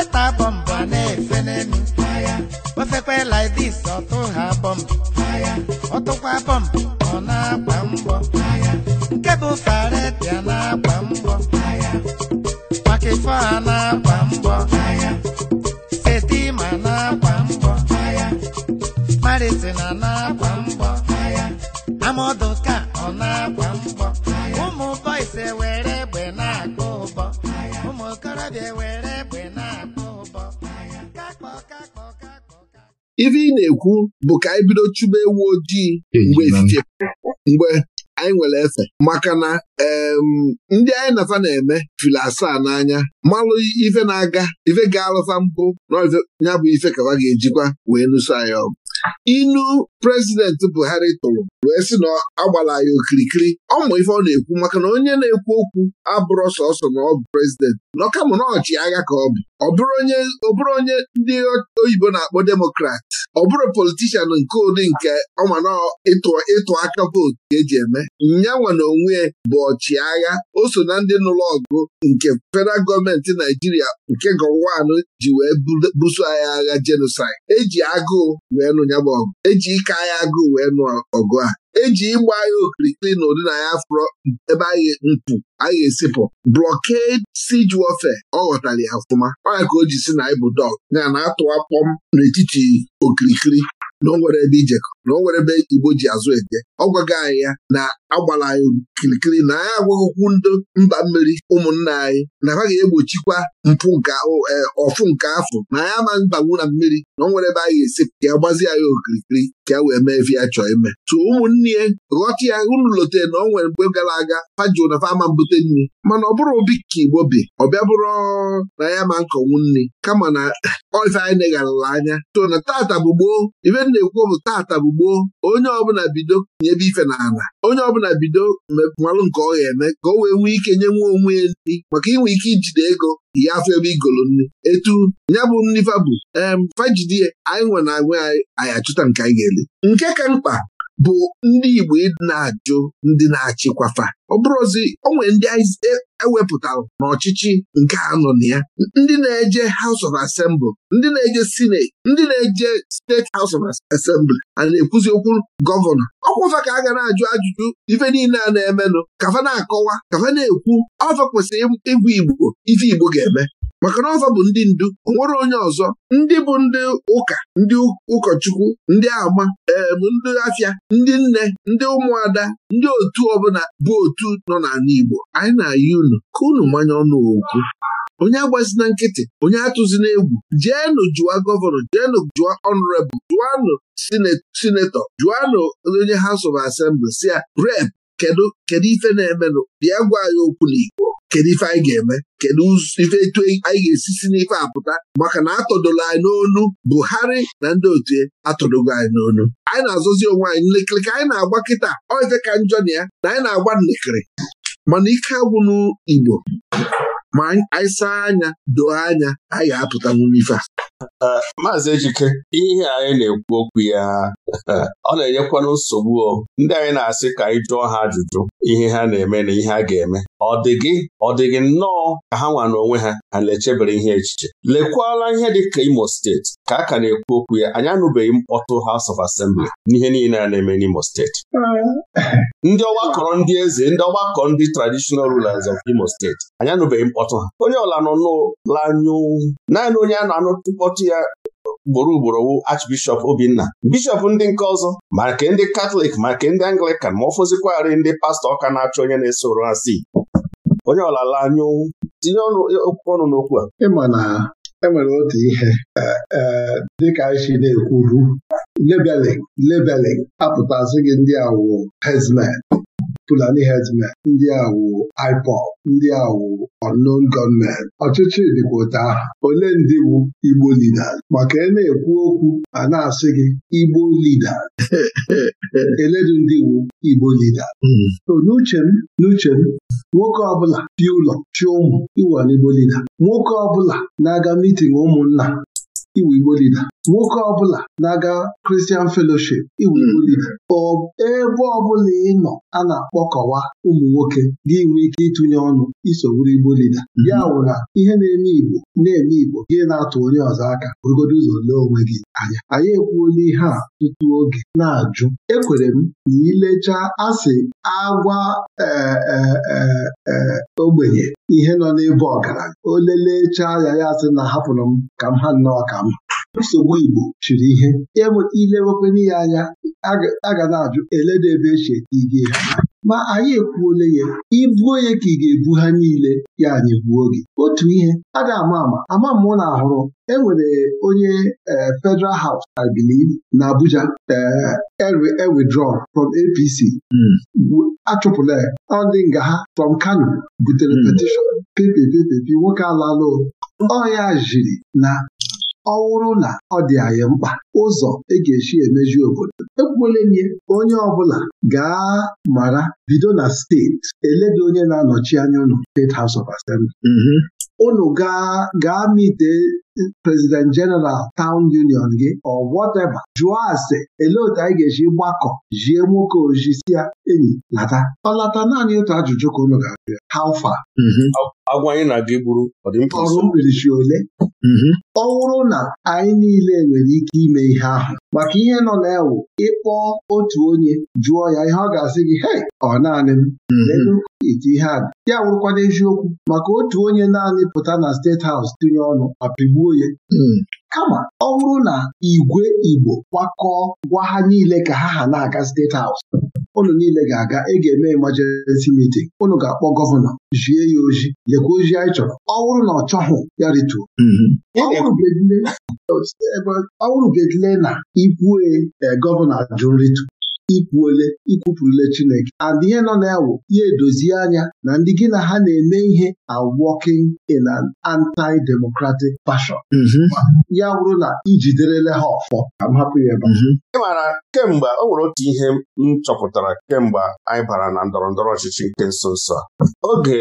pasta bọmbụ a na-efe n'elu gbafekwa like this ọtụ ha bọmbụ ọtụkwa bọmbụ ọ na-agba mbọ nke bụ faretia na-agba mbọ pakifọ a na-agba mbọ setima na-agba mbọ maritina na-agba mbọ amadoka ọ na-agba mbọ ụmụ boys ewere egbe na agba ụbọ ụmụ okorobịa ewere
ive ị na-ekwu bụ ka anyị bido chụba ewu ojii mgbe efife mgbe anyị nwere efe maka na ndị anyị nafa na-eme fili asaa n'anya malụ ife na-aga ife ga-alụfa mpụ na ya bụ ife kafa ga-ejikwa wee lụso anyị ọgụ inu prezidenti Buhari tụrụ wee sị na agbala ya okirikiri ọ ma ife ọ na-ekwu maka na onye na-ekwu okwu abụrụ sọsọ na ọ bụ prezidenti nọ kama na ọchịagha ka ọ bụ ọ bụrụ onye ndị oyibo na-akpọ demokrat ọ bụrụ politishan nke ụdị nke ọma na ịtụ aka vootu ka eji eme nyanwa na onwe bụ ọchịagha o so na ndị n'ụlọ ọgụ nke federal gọọmenti Naijiria nke Gowon ji wee buso anyị agha jenosaid eji agụụ wee nụ. ya bụ ọgụ eji ike agha agụụ wee nụ ọgụ a eji ịgba agha okirikiri na ụdị na ya fụrọ ebe anyị mpụ anyị esipụ blọked siji warfare ọ ghọtara ya ọfụma ọnya ka o ji si na ịbụ bụ dọg na-atụwa kpọm n'etiti okirikiri na o nwere ebe ijekọ na o nwere ebe Igbo ji azụ eje ọ gwago anyị ya na agbara anyị kirikiri na anyị agwaghịkwu ndị mba mmiri ụmụnna anyị na ha ga-egbochikwa mpụ nke e, ọfụ nke afọ na anyị ama mbagbu na mmiri na ọ nwere ebe anyị ga-esi ka ya gbazi anyị okirikiri ka ya e wee mee ebe ya chọọ ime tụ ụmụnne ya ghọta ya unu na ọ nwere mgbe gara aga fa ji na ama mbute nri mana ọ bụrụ obi ka igbo bi ọ bịa bụrụ na ya ma nkọnwu nri kama na ife anyị negharala anya To na tata bụ gboo ife na-ekwu bụ tata bụ gboo onye ọbụla bido nye ebe ife na ala onye ọbụla na bido malụ nke ọ ga-eme ka o wee nwee ike nye nwa onwe ya nri maka inwe ike ijide ego ya afọ ebe igolo nri etu ya bụ nri fabụ em fajidi anyị nwe na agwa anyị achụta nke anyị ga-eli nke ka mkpa bụ ndị Igbo na-ajụ ndị na-achịkwafa ọ ewepụtara n'ọchịchị nke anọ na ya ndị na-eje House of Assembly ndị na-eje Senate ndị na-eje State House of Assembly a na-ekwuzi okwu gọvanọ ọkwụfa ka a ga na-ajụ ajụjụ ife niile a na-emenụ kafa na-akọwa kafa na-ekwu ọfa kwesịrị ịbụ Igbo ife Igbo ga-eme maka na ọzọ bụ ndị ndu onwere nwere onye ọzọ ndị bụ ndị ụka ndị ụkọchukwu ndị agba eem eh, ndị afịa ndị nne ndị ụmụada ndị otu ọbụla bụ otu nọ n'ala Igbo anyị na-ayị unu ka unu manya ọnụ okwu onye agbazina nkịtị onye atụzina egwu jeenụ jụa gọvanọ jeenu jụa ọnụrebụ jụanụ sinetọ jụanụ onye House of Assembly si ya rep kedu kedu ife na-emenụ bịa gwa anyị okwu n'Igbo kedu ife anyị ga-eme kedu ife etu anyị ga-esi si n'ife apụta maka na atọdola anyị n'onu Buhari na ndị otu atọdogo anyị n'onu anyị na-azụzi onwe anyị nlekịrị ka anyị na-agba kịta ọ ka njọ na ya na anyị na-agba nlekịrị mana ike agwụ Igbo ma anyị saa anya doo anya anyị ga-apụta ife a Maazị Ejike
ihe
anyị na-ekwu okwu ya ọ na-enyekwanụ nsogbu o ndị anyị na-asị ka anyị jụọ ha ajụjụ ihe ha na-eme na ihe a ga-eme ọ dị gị ọ dị gị nnọọ ka ha nwa n'onwe ha ha na-echebere ihe echiche lekwala ihe dị ka Imo steeti ka a ka na-ekwu okwu ya anyị anụbeghị mkpọtụ House of Assembly n'ihe niile a na-eme n'Imo steeti ndị ọgbakọrọ ndị eze ndị ọgbakọ ndị traditional rulers of Imo steeti anyị anụbeghị mkpọtụ ha onye ọla nọ n'ụlọ anyụ naanị onye a na-anụ ọkpọchi ya ugboro ugboro wụ Archbishop Obinna bishọp ndị nke ọzọ ma nke ndị Katọlik ma nke ndị Anglikan ma ọ fọzikwarị ndị pastọ ọka na-achọ onye na-esoro ha si onye ọlala anya onwu tinye ọnụ
n'okwu a ịma na enwere otu ihe e, e, dịka anyị na-ekwuru labeling labeling apụtasị gị ndị awụ hezmen Fulani herdsmen ndị awụ IPOB ndị awụ unknown gọọmenti ọchịchị dịkwa ole ndị wụ Igbo lida maka e na-ekwu okwu a na-asị gị Igbo lida eledu ndị wu Igbo lida hmm. so n'uche m n'uche m nwoke ọbụla dị ụlọ chi ụmụ ịwụ Igbo leader nwoke ọbụla na-aga mitin ụmụnna iwu Igbo lida nwoke ọbụla na-aga Kristian feloship iwu Igbo hmm. lida ebe ọbụla ị nọ a na-akpọkọwa ụmụ nwoke gị nwee ike ịtụnye ọnụ iso Igbo lida hmm. ya wụra ihe na-eme Igbo na-eme Igbo gị na-atụ onye ọzọ aka bụrụgodo ụzọ lee onwe gị anya anyị ekwuola ihe a tutu oge na-ajụ ekwere m na ilecha asị agwa e, e, e, ogbenye ihe nọ n'ebe ọgaranya o lelechaa ya ya sị na hapụrụ m ka m ha nnọọ ka m nsogbu Igbo chiri ihe ilewekwana ya anya a ga na-ajụ eledebe eche ige ha ma anyị ekwuole ya ibu onye ka ị ga-ebu ha niile ya anyị buo gị otu ihe a ga-ama ama ama mụ na ahụrụ enwere onye e, Federal House I believe na Abuja ewithdraw e e from APC hmm. achụpụla ya ndị nga ha from Kano butere hmm. petition nwoke ọ ọya jiri na ọ wụrụ na ọ dị anyị mkpa ụzọ e ga-esi emeji obodo ekwuolenye onye ọbụla gaa mara bido na steeti eledo onye na-anọchi anya ụlọ State House of Assembly. ụnụ mm-hmm. gaa gaa mite president general town union gị ọ whatever jụọ ase elee otu anyị ga-eji gbakọ jie nwoke si ya enyi lata ọ lata naanị otu ajụjụ ka unu ga-abịa how far mm-hmm. agwa na-aga igburu ọrụ mkpirisi ole mm-hmm. ọ wụrụ na anyị niile nwere ike ime ihe ahụ maka ihe nọ na-ewu ịkpọ otu onye jụọ ya ihe ọ ga-asị gị hei ọ naanị m mm-hmm. eti ihe a ya wụrụkwana eziokwu maka otu onye naanị pụta na steeti haus tinye ọnụ ma pigbuo Hmm. kama ọ bụrụ na igwe Igbo kwakọọ gwa ha niile ka ha ha na-aga steeti haus ụnụ niile ga-aga ị ga-eme emergency meeting ụnụ ga-akpọ gọvanọ jie ya ozi lekwa anyị chọrọ ọ bụrụ na ọ ya rituo hmm. ọ bụrụ bedile na ikwue eh, gọvanọ jụ nritu ikwuole ikwupụrụle Chineke and ihe nọ na yawụ ya edozi anya na ndị gị na ha na-eme ihe are working in an anti-democratic fashion mhm. ya wụrụ na ijiderele ha ọfọ ka
m hapụ ya ị
maara kemgbe o nwere otu ihe m chọpụtara kemgbe anyị bara na ndọrọ ndọrọ ọchịchị nke nso nso a oge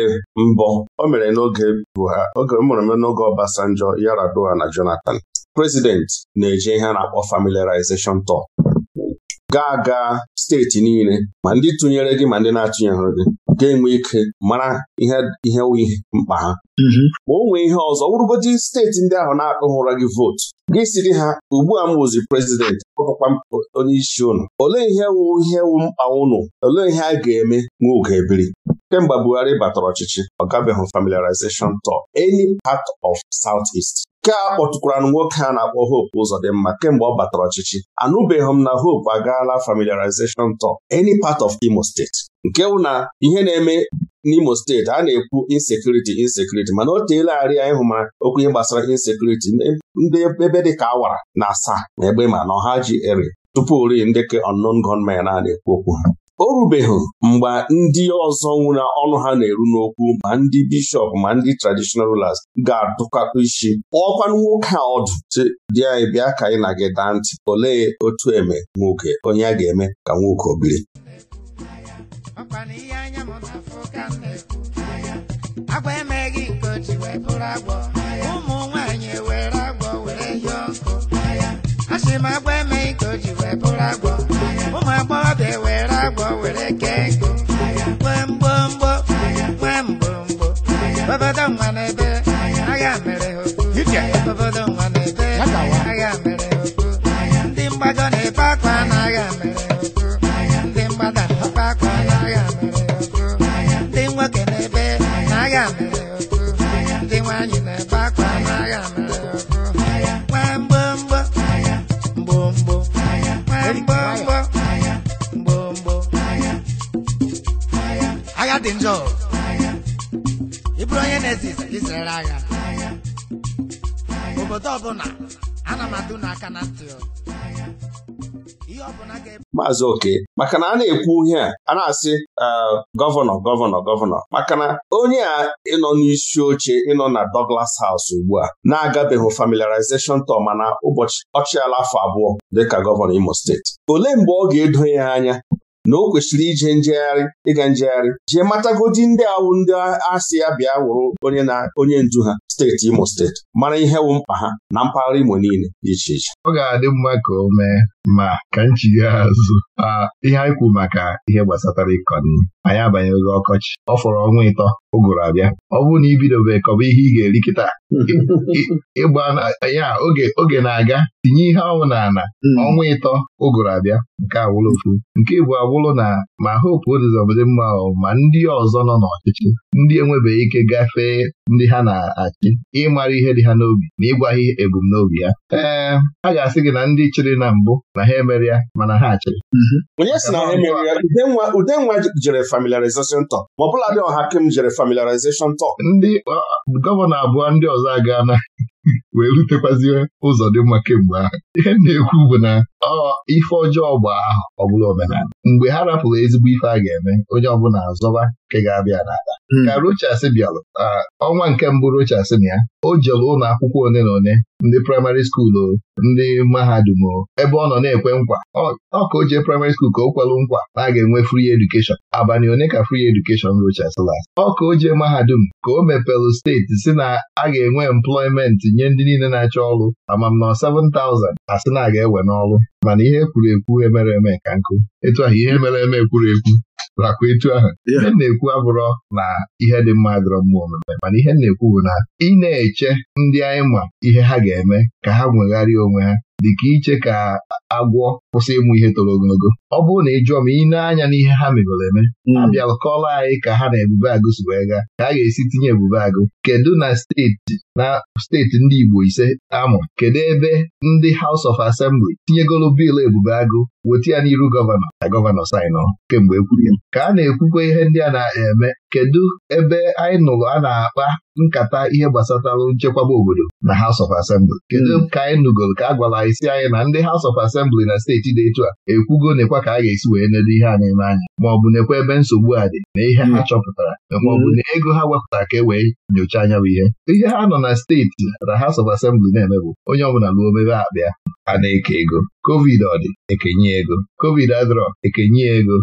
mbọ o mere n'oge Buhari oge mere n'oge Obasanjo Yaradua na Jonathan prezidenti na-eje ihe a na-akpọ familiarization tour ga-aga steeti niile ma ndị tụnyere gị ma ndị na-atụnyere gị ga-enwe ike mara ihe ihe mkpa ha mhm. ma o nwee ihe ọzọ wụrụgodi steeti ndị ahụ na-akpụghị ụra gị vootu gị siri ha ugbu a m bụzi prezidenti ọkpụkpa onye isi ụnụ olee ihe wụ ihe wụ mkpa ụnụ olee ihe a ga-eme nwa oge kemgbe Buhari batara ọchịchị ọ gabeghị familiarization tour any part of Southeast nke a kpọtụkwara nwoke a na-akpọ Hope Uzodimma kemgbe ọ batara ọchịchị anụbeghị m na Hope agaala familiarization tour any part of Imo State nke bụ na ihe na-eme n'Imo steeti a na-ekwu insecurity insecurity mana o teela arị anyị mara okwu ihe gbasara insecurity ndị ebe dịka awara na asaa na egbe ma na ọha ji eri tupu ori ndị ka unknown gunmen a na-ekwu okwu ha o rubeghị mgbe ndị ọzọ nwụrụ ọnụ ha na-eru n'okwu ma ndị bishọp ma ndị traditional rulers ga-adụkakọ isi ọkwanụ nwoke a ọdụ dị anyị bịa ka anyị na gị daa ntị olee otu eme nwoke onye a ga-eme ka nwoke obiri
o ji wee bụrụ agbọ were kee ego nwee mgbomgbo nwee mgbomgbo webedo nwa n'ebe agha mere dị njọ ịbụrụ onye na agha obodo ọbụla ana m adụ n'aka na ntị
maazị oke maka na a na-ekwu ihe a a na-asị ah, gọvanọ gọvanọ gọvanọ maka na onye a ịnọ n'isi oche ịnọ na Douglas House ugbu a na-agabeghị familiarization tọ mana ụbọchị ọchịala afọ abụọ dịka gọvanọ Imo steeti olee mgbe ọ ga-edo ya anya na o kwesịrị ije njegharị ịga njegharị jee matagodi ndị awụ ndị asị ya bịa wụrụ onye na ndu ha steeti Imo steeti mara ihe wụ mkpa ha na mpaghara Imo niile dị iche iche
ọ ga-adị mma ka o mee ma ka nchigha azụ ihe anyị kwu maka ihe gbasatara ịkọ nri anyị abanyeghị ọkọchị ọ fọrọ ọnwa ịtọ ụgụrụ abịa ọ bụrụ na ibidobe kọba ihe ị ga-eri kịta ịgba ya oge na-aga tinye ihe ọnwụ n'ala hmm. ọnwa ịtọ ụgụrụ abịa nke awụrụ nke bụ awụlụ na ma hopu odizọbdị mma ma ndị ọzọ nọ n'ọchịchị ndị enwebeghị ike gafee ndị ha na-achị gị ịmara ihe dị ha n'obi na ịgwa ha ebumnobi ya ee a ga-asị gị na ndị chịrị na mbụ na ha emere ya mana ha chịrị mhm. onye si na ha emere ya
udenwa jere familiarization talk ma ọ dị ọha kem jere familiarization talk ndị
gọvanọ abụọ ndị ọzọ aga na wee rutekwazie ụzọ dị mma kemgbe ahụ ihe na-ekwu bụ na ọ ife ọjọọ bụ ahụ ọ bụla omenala mgbe ha rapụrụ ezigbo ife a ga-eme onye ọbụla azọba nke ga-abịa n'ala hmm. ka Rochas bịalụ ọnwa nke mbụ Rochas na ya o jere ụlọ akwụkwọ ole na one ndị praịmarị skuulu ndị mahadum o. ebe ọ nọ na-ekwe nkwa ọ ka o jee praịmarị skuulu ka o kwelụ nkwa na a ga-enwe free education abalị one ka free education Rochas last ọ ka o jee mahadum ka o mepelụ steeti si na a ga-enwe employment nye ndị niile na-achọ ọrụ ama m na 7,000 asị na aga ewe n'ọrụ mana ihe kwuru ekwu emere eme ka nkụ etu ahụ ihe mere eme kwuru ekwu lakwa etu ahụ ihe na-ekwu abụrọ na ihe dị mma dọrọ mma omume mana ihe na-ekwu bụ na ị na-eche ndị anyị ma ihe ha ga-eme ka ha nwegharịa onwe ha ka iche ka agwọ kwụsị ịmụ ihe toro ogologo ọ bụrụ na ị jụọ m ị anya n'ihe ha megoro eme hmm. a kọọlọ anyị ka ha na ebube agụ si wee gaa ka a ga-esi tinye ebube agụ kedu na steeti na steeti ndị Igbo ise amụ kedu ebe ndị House of Assembly tinyegoro biil ebube agụ weta ya n'iru gọvanọ na gọvanọ sainụ kemgbe ekwuru ya ka a na-ekwukwa ihe ndị a na-eme kedu ebe anyị nụrụ a na-akpa nkata ihe gbasatalụ nchekwaba obodo na House of Assembly kedu hmm. ka anyị nụgoro ka a gwara isi anyị na ndị House of Assembly na steeti dị etu a ekwugo nekwa ka a ga-esi wee nedo ihe a na-eme anya maọbụ nekwa ebe nsogbu a dị na ihe ha hmm. chọpụtara maọbụ hmm. na ego ha wepụtara ka e wee nyochaa anya bụ ihe ihe ha nọ na steeti na House of Assembly na-eme bụ onye ọbụla ruo obere akpa a na-eke ego covid ọ dị ekenye ego covid adịrọ ekenye ego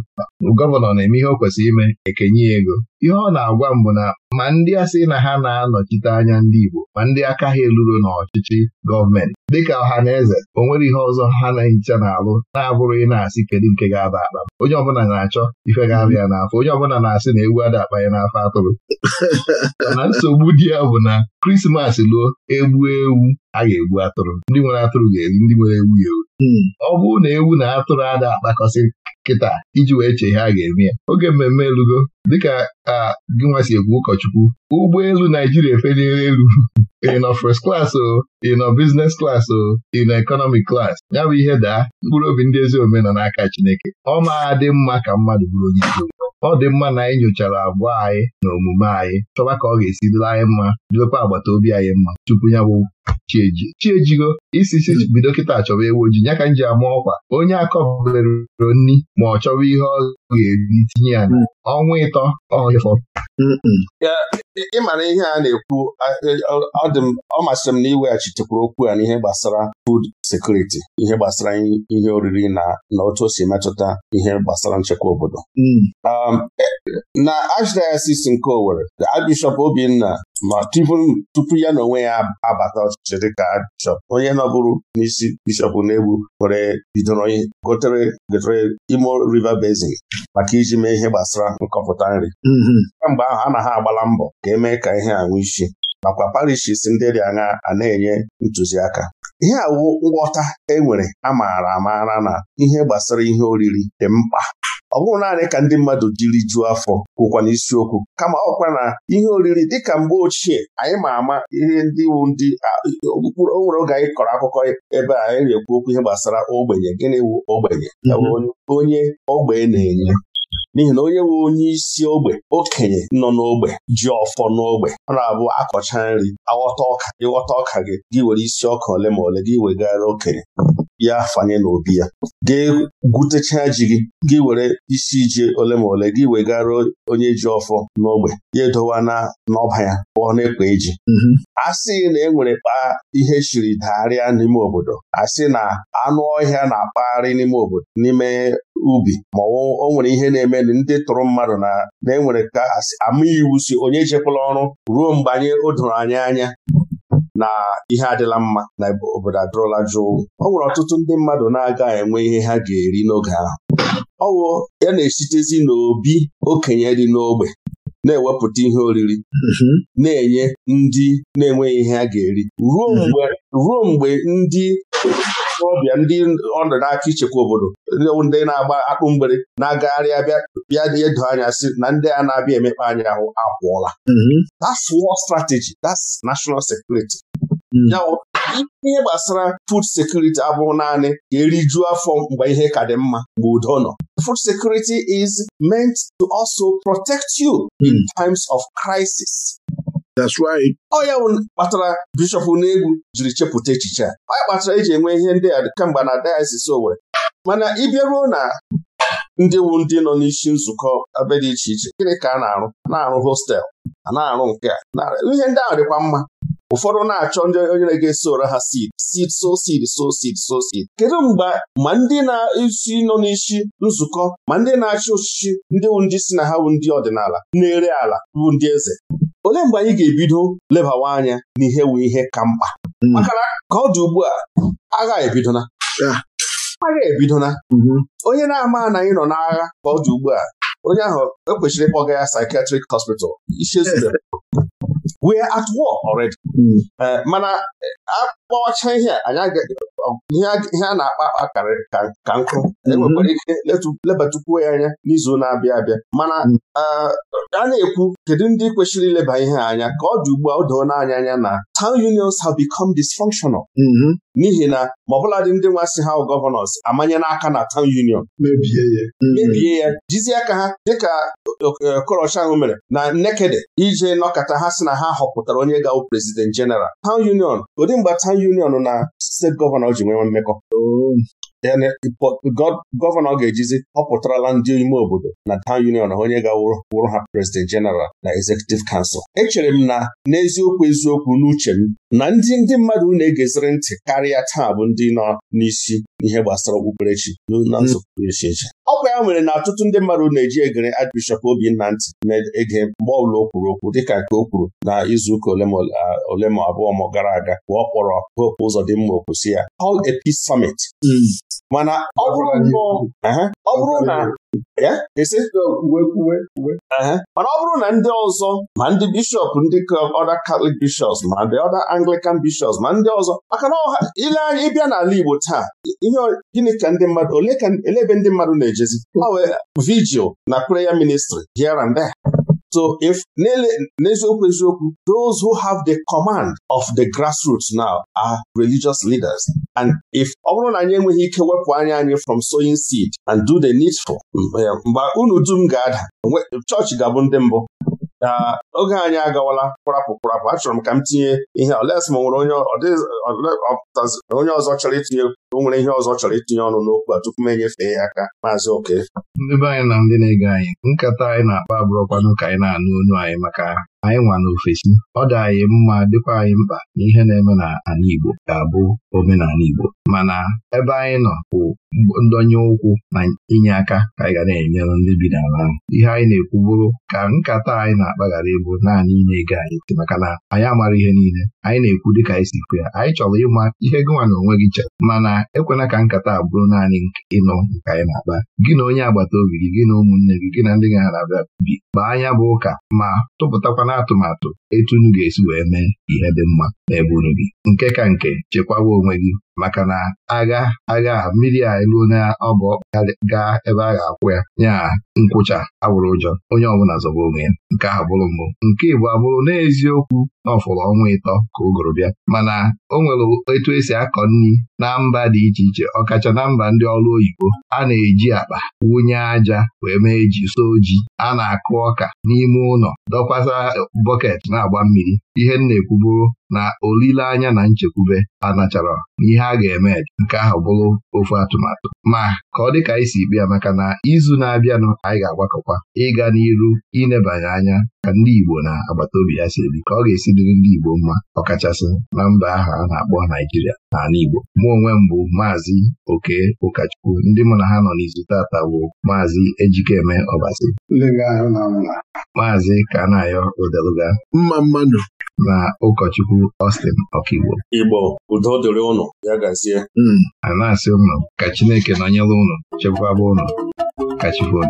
gọvanọ na-eme ihe o kwesịrị ime ekenye ego ihe ọ na-agwa m bụ na ma ndị asị na ha na-anọchite anya ndị Igbo ma ndị aka ha eluro n'ọchịchị gọọmenti dịka ọha na eze o nwere ihe ọzọ ha na-ehicha na-alụ na-abụrụ ị na-asị kedu nke ga-aba akpa onye ọbụla na-achọ ife ga n'afọ onye ọbụla na-asị na egwu ada akpa ya n'afọ atụrụ na nsogbu dị ya bụ na krismas luo egbu ewu a ga-egbu atụrụ ndị nwere atụrụ ga-eri ndị nwere ewu ya ewu hmm. ọ bụrụ na ewu na atụrụ ada akpakọsị kịta iji wee chee ihe a ga-eme ya oge mmemme elugo dịka a gị nwa si ekwu ụkọchukwu ụgbọelu Naijiria efeliere elu ị nọ first class o ị nọ business class o ị economic class ya bụ ihe daa mkpụrụ obi ndị ezi omenọ nọ n'aka Chineke ọ maa dị mma ka mmadụ bụrụ onye isi ọ dị mma na anyị nyochara agwa anyị na omume anyị chọba ka ọ ga-esi dịla anyị mma dịlekwa agbata obi anyị mma tupu ya bụ chieji chiejigo isi si bido kịta chọba ewu ojii ya ka m ji ama ọkwa onye akọbere nri ma ọ chọba ihe ọ ga-eri tinye ya na mm.
ọnwa ịtọ ọhịfọ
ịmara ihe a na-ekwu
ọ masịrị m na iweghachitekwa okwu ya n'ihe gbasara sekuriti ihe gbasara ihe oriri na na otu o si metụta ihe gbasara nchekwa obodo hmm. um, na Ashdiasis nke Owerri Archbishop Obinna ma tupu ya na onwe ya abata ọchịchị ka bishọp onye nọbụrụ n'isi bishọp na-egbu were bidoro gotere gotere Imo River Basin maka iji mee ihe gbasara nkọpụta nri hmm, hmm. kemgbe ahụ ha agbala mbọ ka emee ka ihe a nwee isi nakwa parishis ndị dị anya a na-enye ntụziaka ihe awụ nghọta e nwere amaara amaara na ihe gbasara ihe oriri dị mkpa ọ bụrụ naanị ka ndị mmadụ jiri jụọ afọ kwụkwa n'isiokwu kama ọkwa na ihe oriri dị ka mgbe ochie anyị ma ama ihe ndị iwu ndị okpukpụrụ o nwere oge anyị kọrọ akụkọ ebe a anyị na-ekwu okwu ihe gbasara ogbenye gịnị wụ ogbenye mhm. onye ogbe na-enye n'ihi na onye nwe onye isi ogbe okenye nọ n'ogbe ji ọfọ n'ogbe ọ na-abụ akọcha nri aghọta ọka ịghọta ọka gị gị were isi ọka ole ma ole gị wegara okenye ya fanye n'obi ya Gị gwutechaa ji gị gị were isi ji ole ma ole gị wegara onye ji ọfọ n'ogbe ya edowa na n'ọba ya pụọ n'ekwe eji mhm. a sị na e nwere kpaa ihe chiri dagharịa n'ime obodo a sị na anụ ọhịa na-akpagharị n'ime obodo n'ime ubi ma o nwere ihe na-eme ndị tụrụ mmadụ na enwere ka ama iwu si onye jekwala ọrụ ruo mgbe anyị o doro anya na ihe adịla mma na obodo adụrụla jụụ ọ nwere ọtụtụ ndị mmadụ na-aga enwe ihe ha ga-eri n'oge ahụ ọwụ ya na-esitezi n'obi okenye dị n'ogbe na-ewepụta ihe oriri mhm. na-enye ndị na-enweghị ihe ha ga-eri ruo mhm. mgbe ndị ọbịa ndị ọnụ n'aka ichekwa obodo ndị na-agba akpụ mgbere na-agagharị bịa edo anya si na ndị a na-abịa emekpa anya ahụ apụọla mhm. that's war strategy that's national security Mm. ihe gbasara food security abụghị naanị ka erijuo afọ mgbe ihe ka dị mma mgbe udo nọ food security is meant to also protect you in mm. times of crisis That's right. Ọ ya kpatara bishọp n'egwu jiri chepụta echiche a ọ ya kpatara eji enwe ihe ndị a kemgbe na o nwere. mana ịbịaruo na ndị wu ndị nọ n'isi nzukọ ebe dị iche iche gịnị ka a na-arụ na-arụ hostel a na-arụ nke a ihe ndị ahụ dịkwa mma ụfọdụ na-achọ ndị onye na ụra ha sid sid so sid so sid so sid kedu mgbe ma ndị na-esi nọ n'isi nzukọ ma ndị na-achị ọchịchị ndị wu ndị si na ha wu ndị ọdịnala na-ere ala bụ ndị eze olee mgbe anyị ga-ebido lebawa anya n'ihe wu ihe ka mkpa hmm. maka na ka ọ dị ugbu a agha ebidona agha ebidona mhm. onye na-ama na anyị nọ n'agha ka ọ dị ugbu a onye ahụ ekwesịrị ịkpọga ya psychiatric hospital isi we're at war already. Hmm. Uh, mana akpọwacha ihe anyị ihe a na-akpa akpa ka nkụ enwekwara mhm. ike lebatukwuo ya anya n'izu na-abịa abịa mana mhm. a na-ekwu kedu ndị kwesịrị ileba ihe anya ka ọ dị ugbu a o doo n'anya anya na town unions have become dysfunctional mhm. n'ihi na ma ọbụladị ndị nwa si ha gọvanọs amanye n'aka na town union mebie
ya mebie
ya jizi aka ha dịka e, okorocha ahụ mere na Nnekede ije nọkọta ha si na ha họpụtara onye ga-awụ prezident jeneral town union ụdị mgbe town union na steeti gọvanọ gọvanọ ji nwee mmekọ gọvanọ ga-ejizi họpụtarala ndị ime obodo na town union onye ga-wụrụ ha president general na executive council echere m na n'eziokwu eziokwu n'uche m na ndị ndị mmadụ na-egeziri ntị karịa taa bụ ndị nọ n'isi n'ihe gbasara okpukperechi na nsogbu echi ọ bụ ya nwere na ọtụtụ ndị mmadụ na-eji egere Archbishop Obinna ntị na-ege mgbe ọbụla o kwuru okwu dịka nke o kwuru na izuụka ole ma abụọ ma gara aga mgbe ọ kpọrọ Hope mma okwusi ya All a Peace Summit hmm. mana ọ bụrụ na mana ọ bụrụ na ndị ọzọ ma ndị bishọp ndị ọda katọlik bishops ma ndị ọda anglican bishops ma ndị ọzọ maka na ile anya ịbịa n'ala Igbo taa ihe gịnị ka ndị mmadụ ole ebe ndị mmadụ na-ejezi vigil na prayer ministry here and there So if n'eziokwu eziokwu those who have the command of the grassroots now are religious leaders and if ọ bụrụ na anyị enweghị ike wepụ anya anyị from sowing seed and do the needful mgbe unu dum ga-ada chọọchị ga-abụ ndị mbụ oge anyị agawala kpụrapụ kpụrapụ achọrọ m ka m tinye ihe oles ma nwere onye ọzọ chọrọ itinye o nwere ihe ọzọ chọrọ itinye ọnụ n'okwu a tupu m enyefee ya aka maazị oke
ndị be anyị na ndị na-ege anyị nkata anyị na-akpa abụrụkwanụ ka anyị na-anụ onu anyị maka anyị nwa n'ofesi ọ dị anyị mma dịkwa anyị mkpa na ihe na-eme na n'ala Igbo ga-abụ omenala Igbo mana ebe anyị nọ bụ ndọnye ụkwụ na inye aka ka anyị ga na-enyere ndị bi n'ala ahụ ihe anyị na-ekwu bụrụ ka nkata anyị na-akpaghara ịbụ naanị ịna ego anyị maka na anyị amara ihe niile anyị na-ekwu dịka anyị si kwu ya anyị chọrọ ịma ihe gịnwa na onwe gị chere mana ekwela ka nkata a bụrụ naanị ịnụ nke anyị na-akpa gị na onye agbata obi gị gị na ụmụnne gị gị na ndị gị na-abịa bi kpaa anya bụ ụka ma tụpụtakwana atụmatụ etu unu ga-esi wee mee ihe dị mma n'ebe unu bi nke ka nke chekwawa onwe gị maka na agha agha mmiri a elu onye ọbụ gaa ebe a ga-akwụ ya nya nkwụcha agwụrụ ụjọ onye ọbụla zọba onwe ya nke ahụ bụrụ mbụ nke Igbo abụrụ n'eziokwu na ọfụrụ ọnwa ịtọ ka ụgụrụ bịa mana o nwere etu esi akọ nri na mba dị iche iche ọkacha na mba ndị ọrụ oyibo a na-eji akpa wunye aja wee mee ji so ji a na-akụ ọka n'ime ụlọ dọkwasa bọket na-agba mmiri ihe m na-ekwu na olileanya na nchekwube a nachara n'ihe a ga-eme nke ahụ bụrụ ofu atụmatụ ma ka ọ dị ka anyị si ikpe maka na izu na-abịanụ anyị ga-agbakọkwa ịga n'iru inebanye anya ka ndị Igbo na agbata obi ya si ebi ka ọ ga-esi dịrị ndị Igbo mma ọkachasị na mba ahụ a na-akpọ Naijiria na ala Igbo mụ onwe m bụ maazị Oke Ụkachukwu ndị mụ na ha nọ n'izu tata bụ maazị Ejikeme Ọbasi maazị Kanayo Odeluga mma mmadụ na ụkọchukwu Austin Ọkigbo
Igbo udo dịrị ụnụ ya gazie
hmm, a na-asị ụnụ ka
Chineke nọnyere ụnụ chekwaba ụnụ ka Chukwu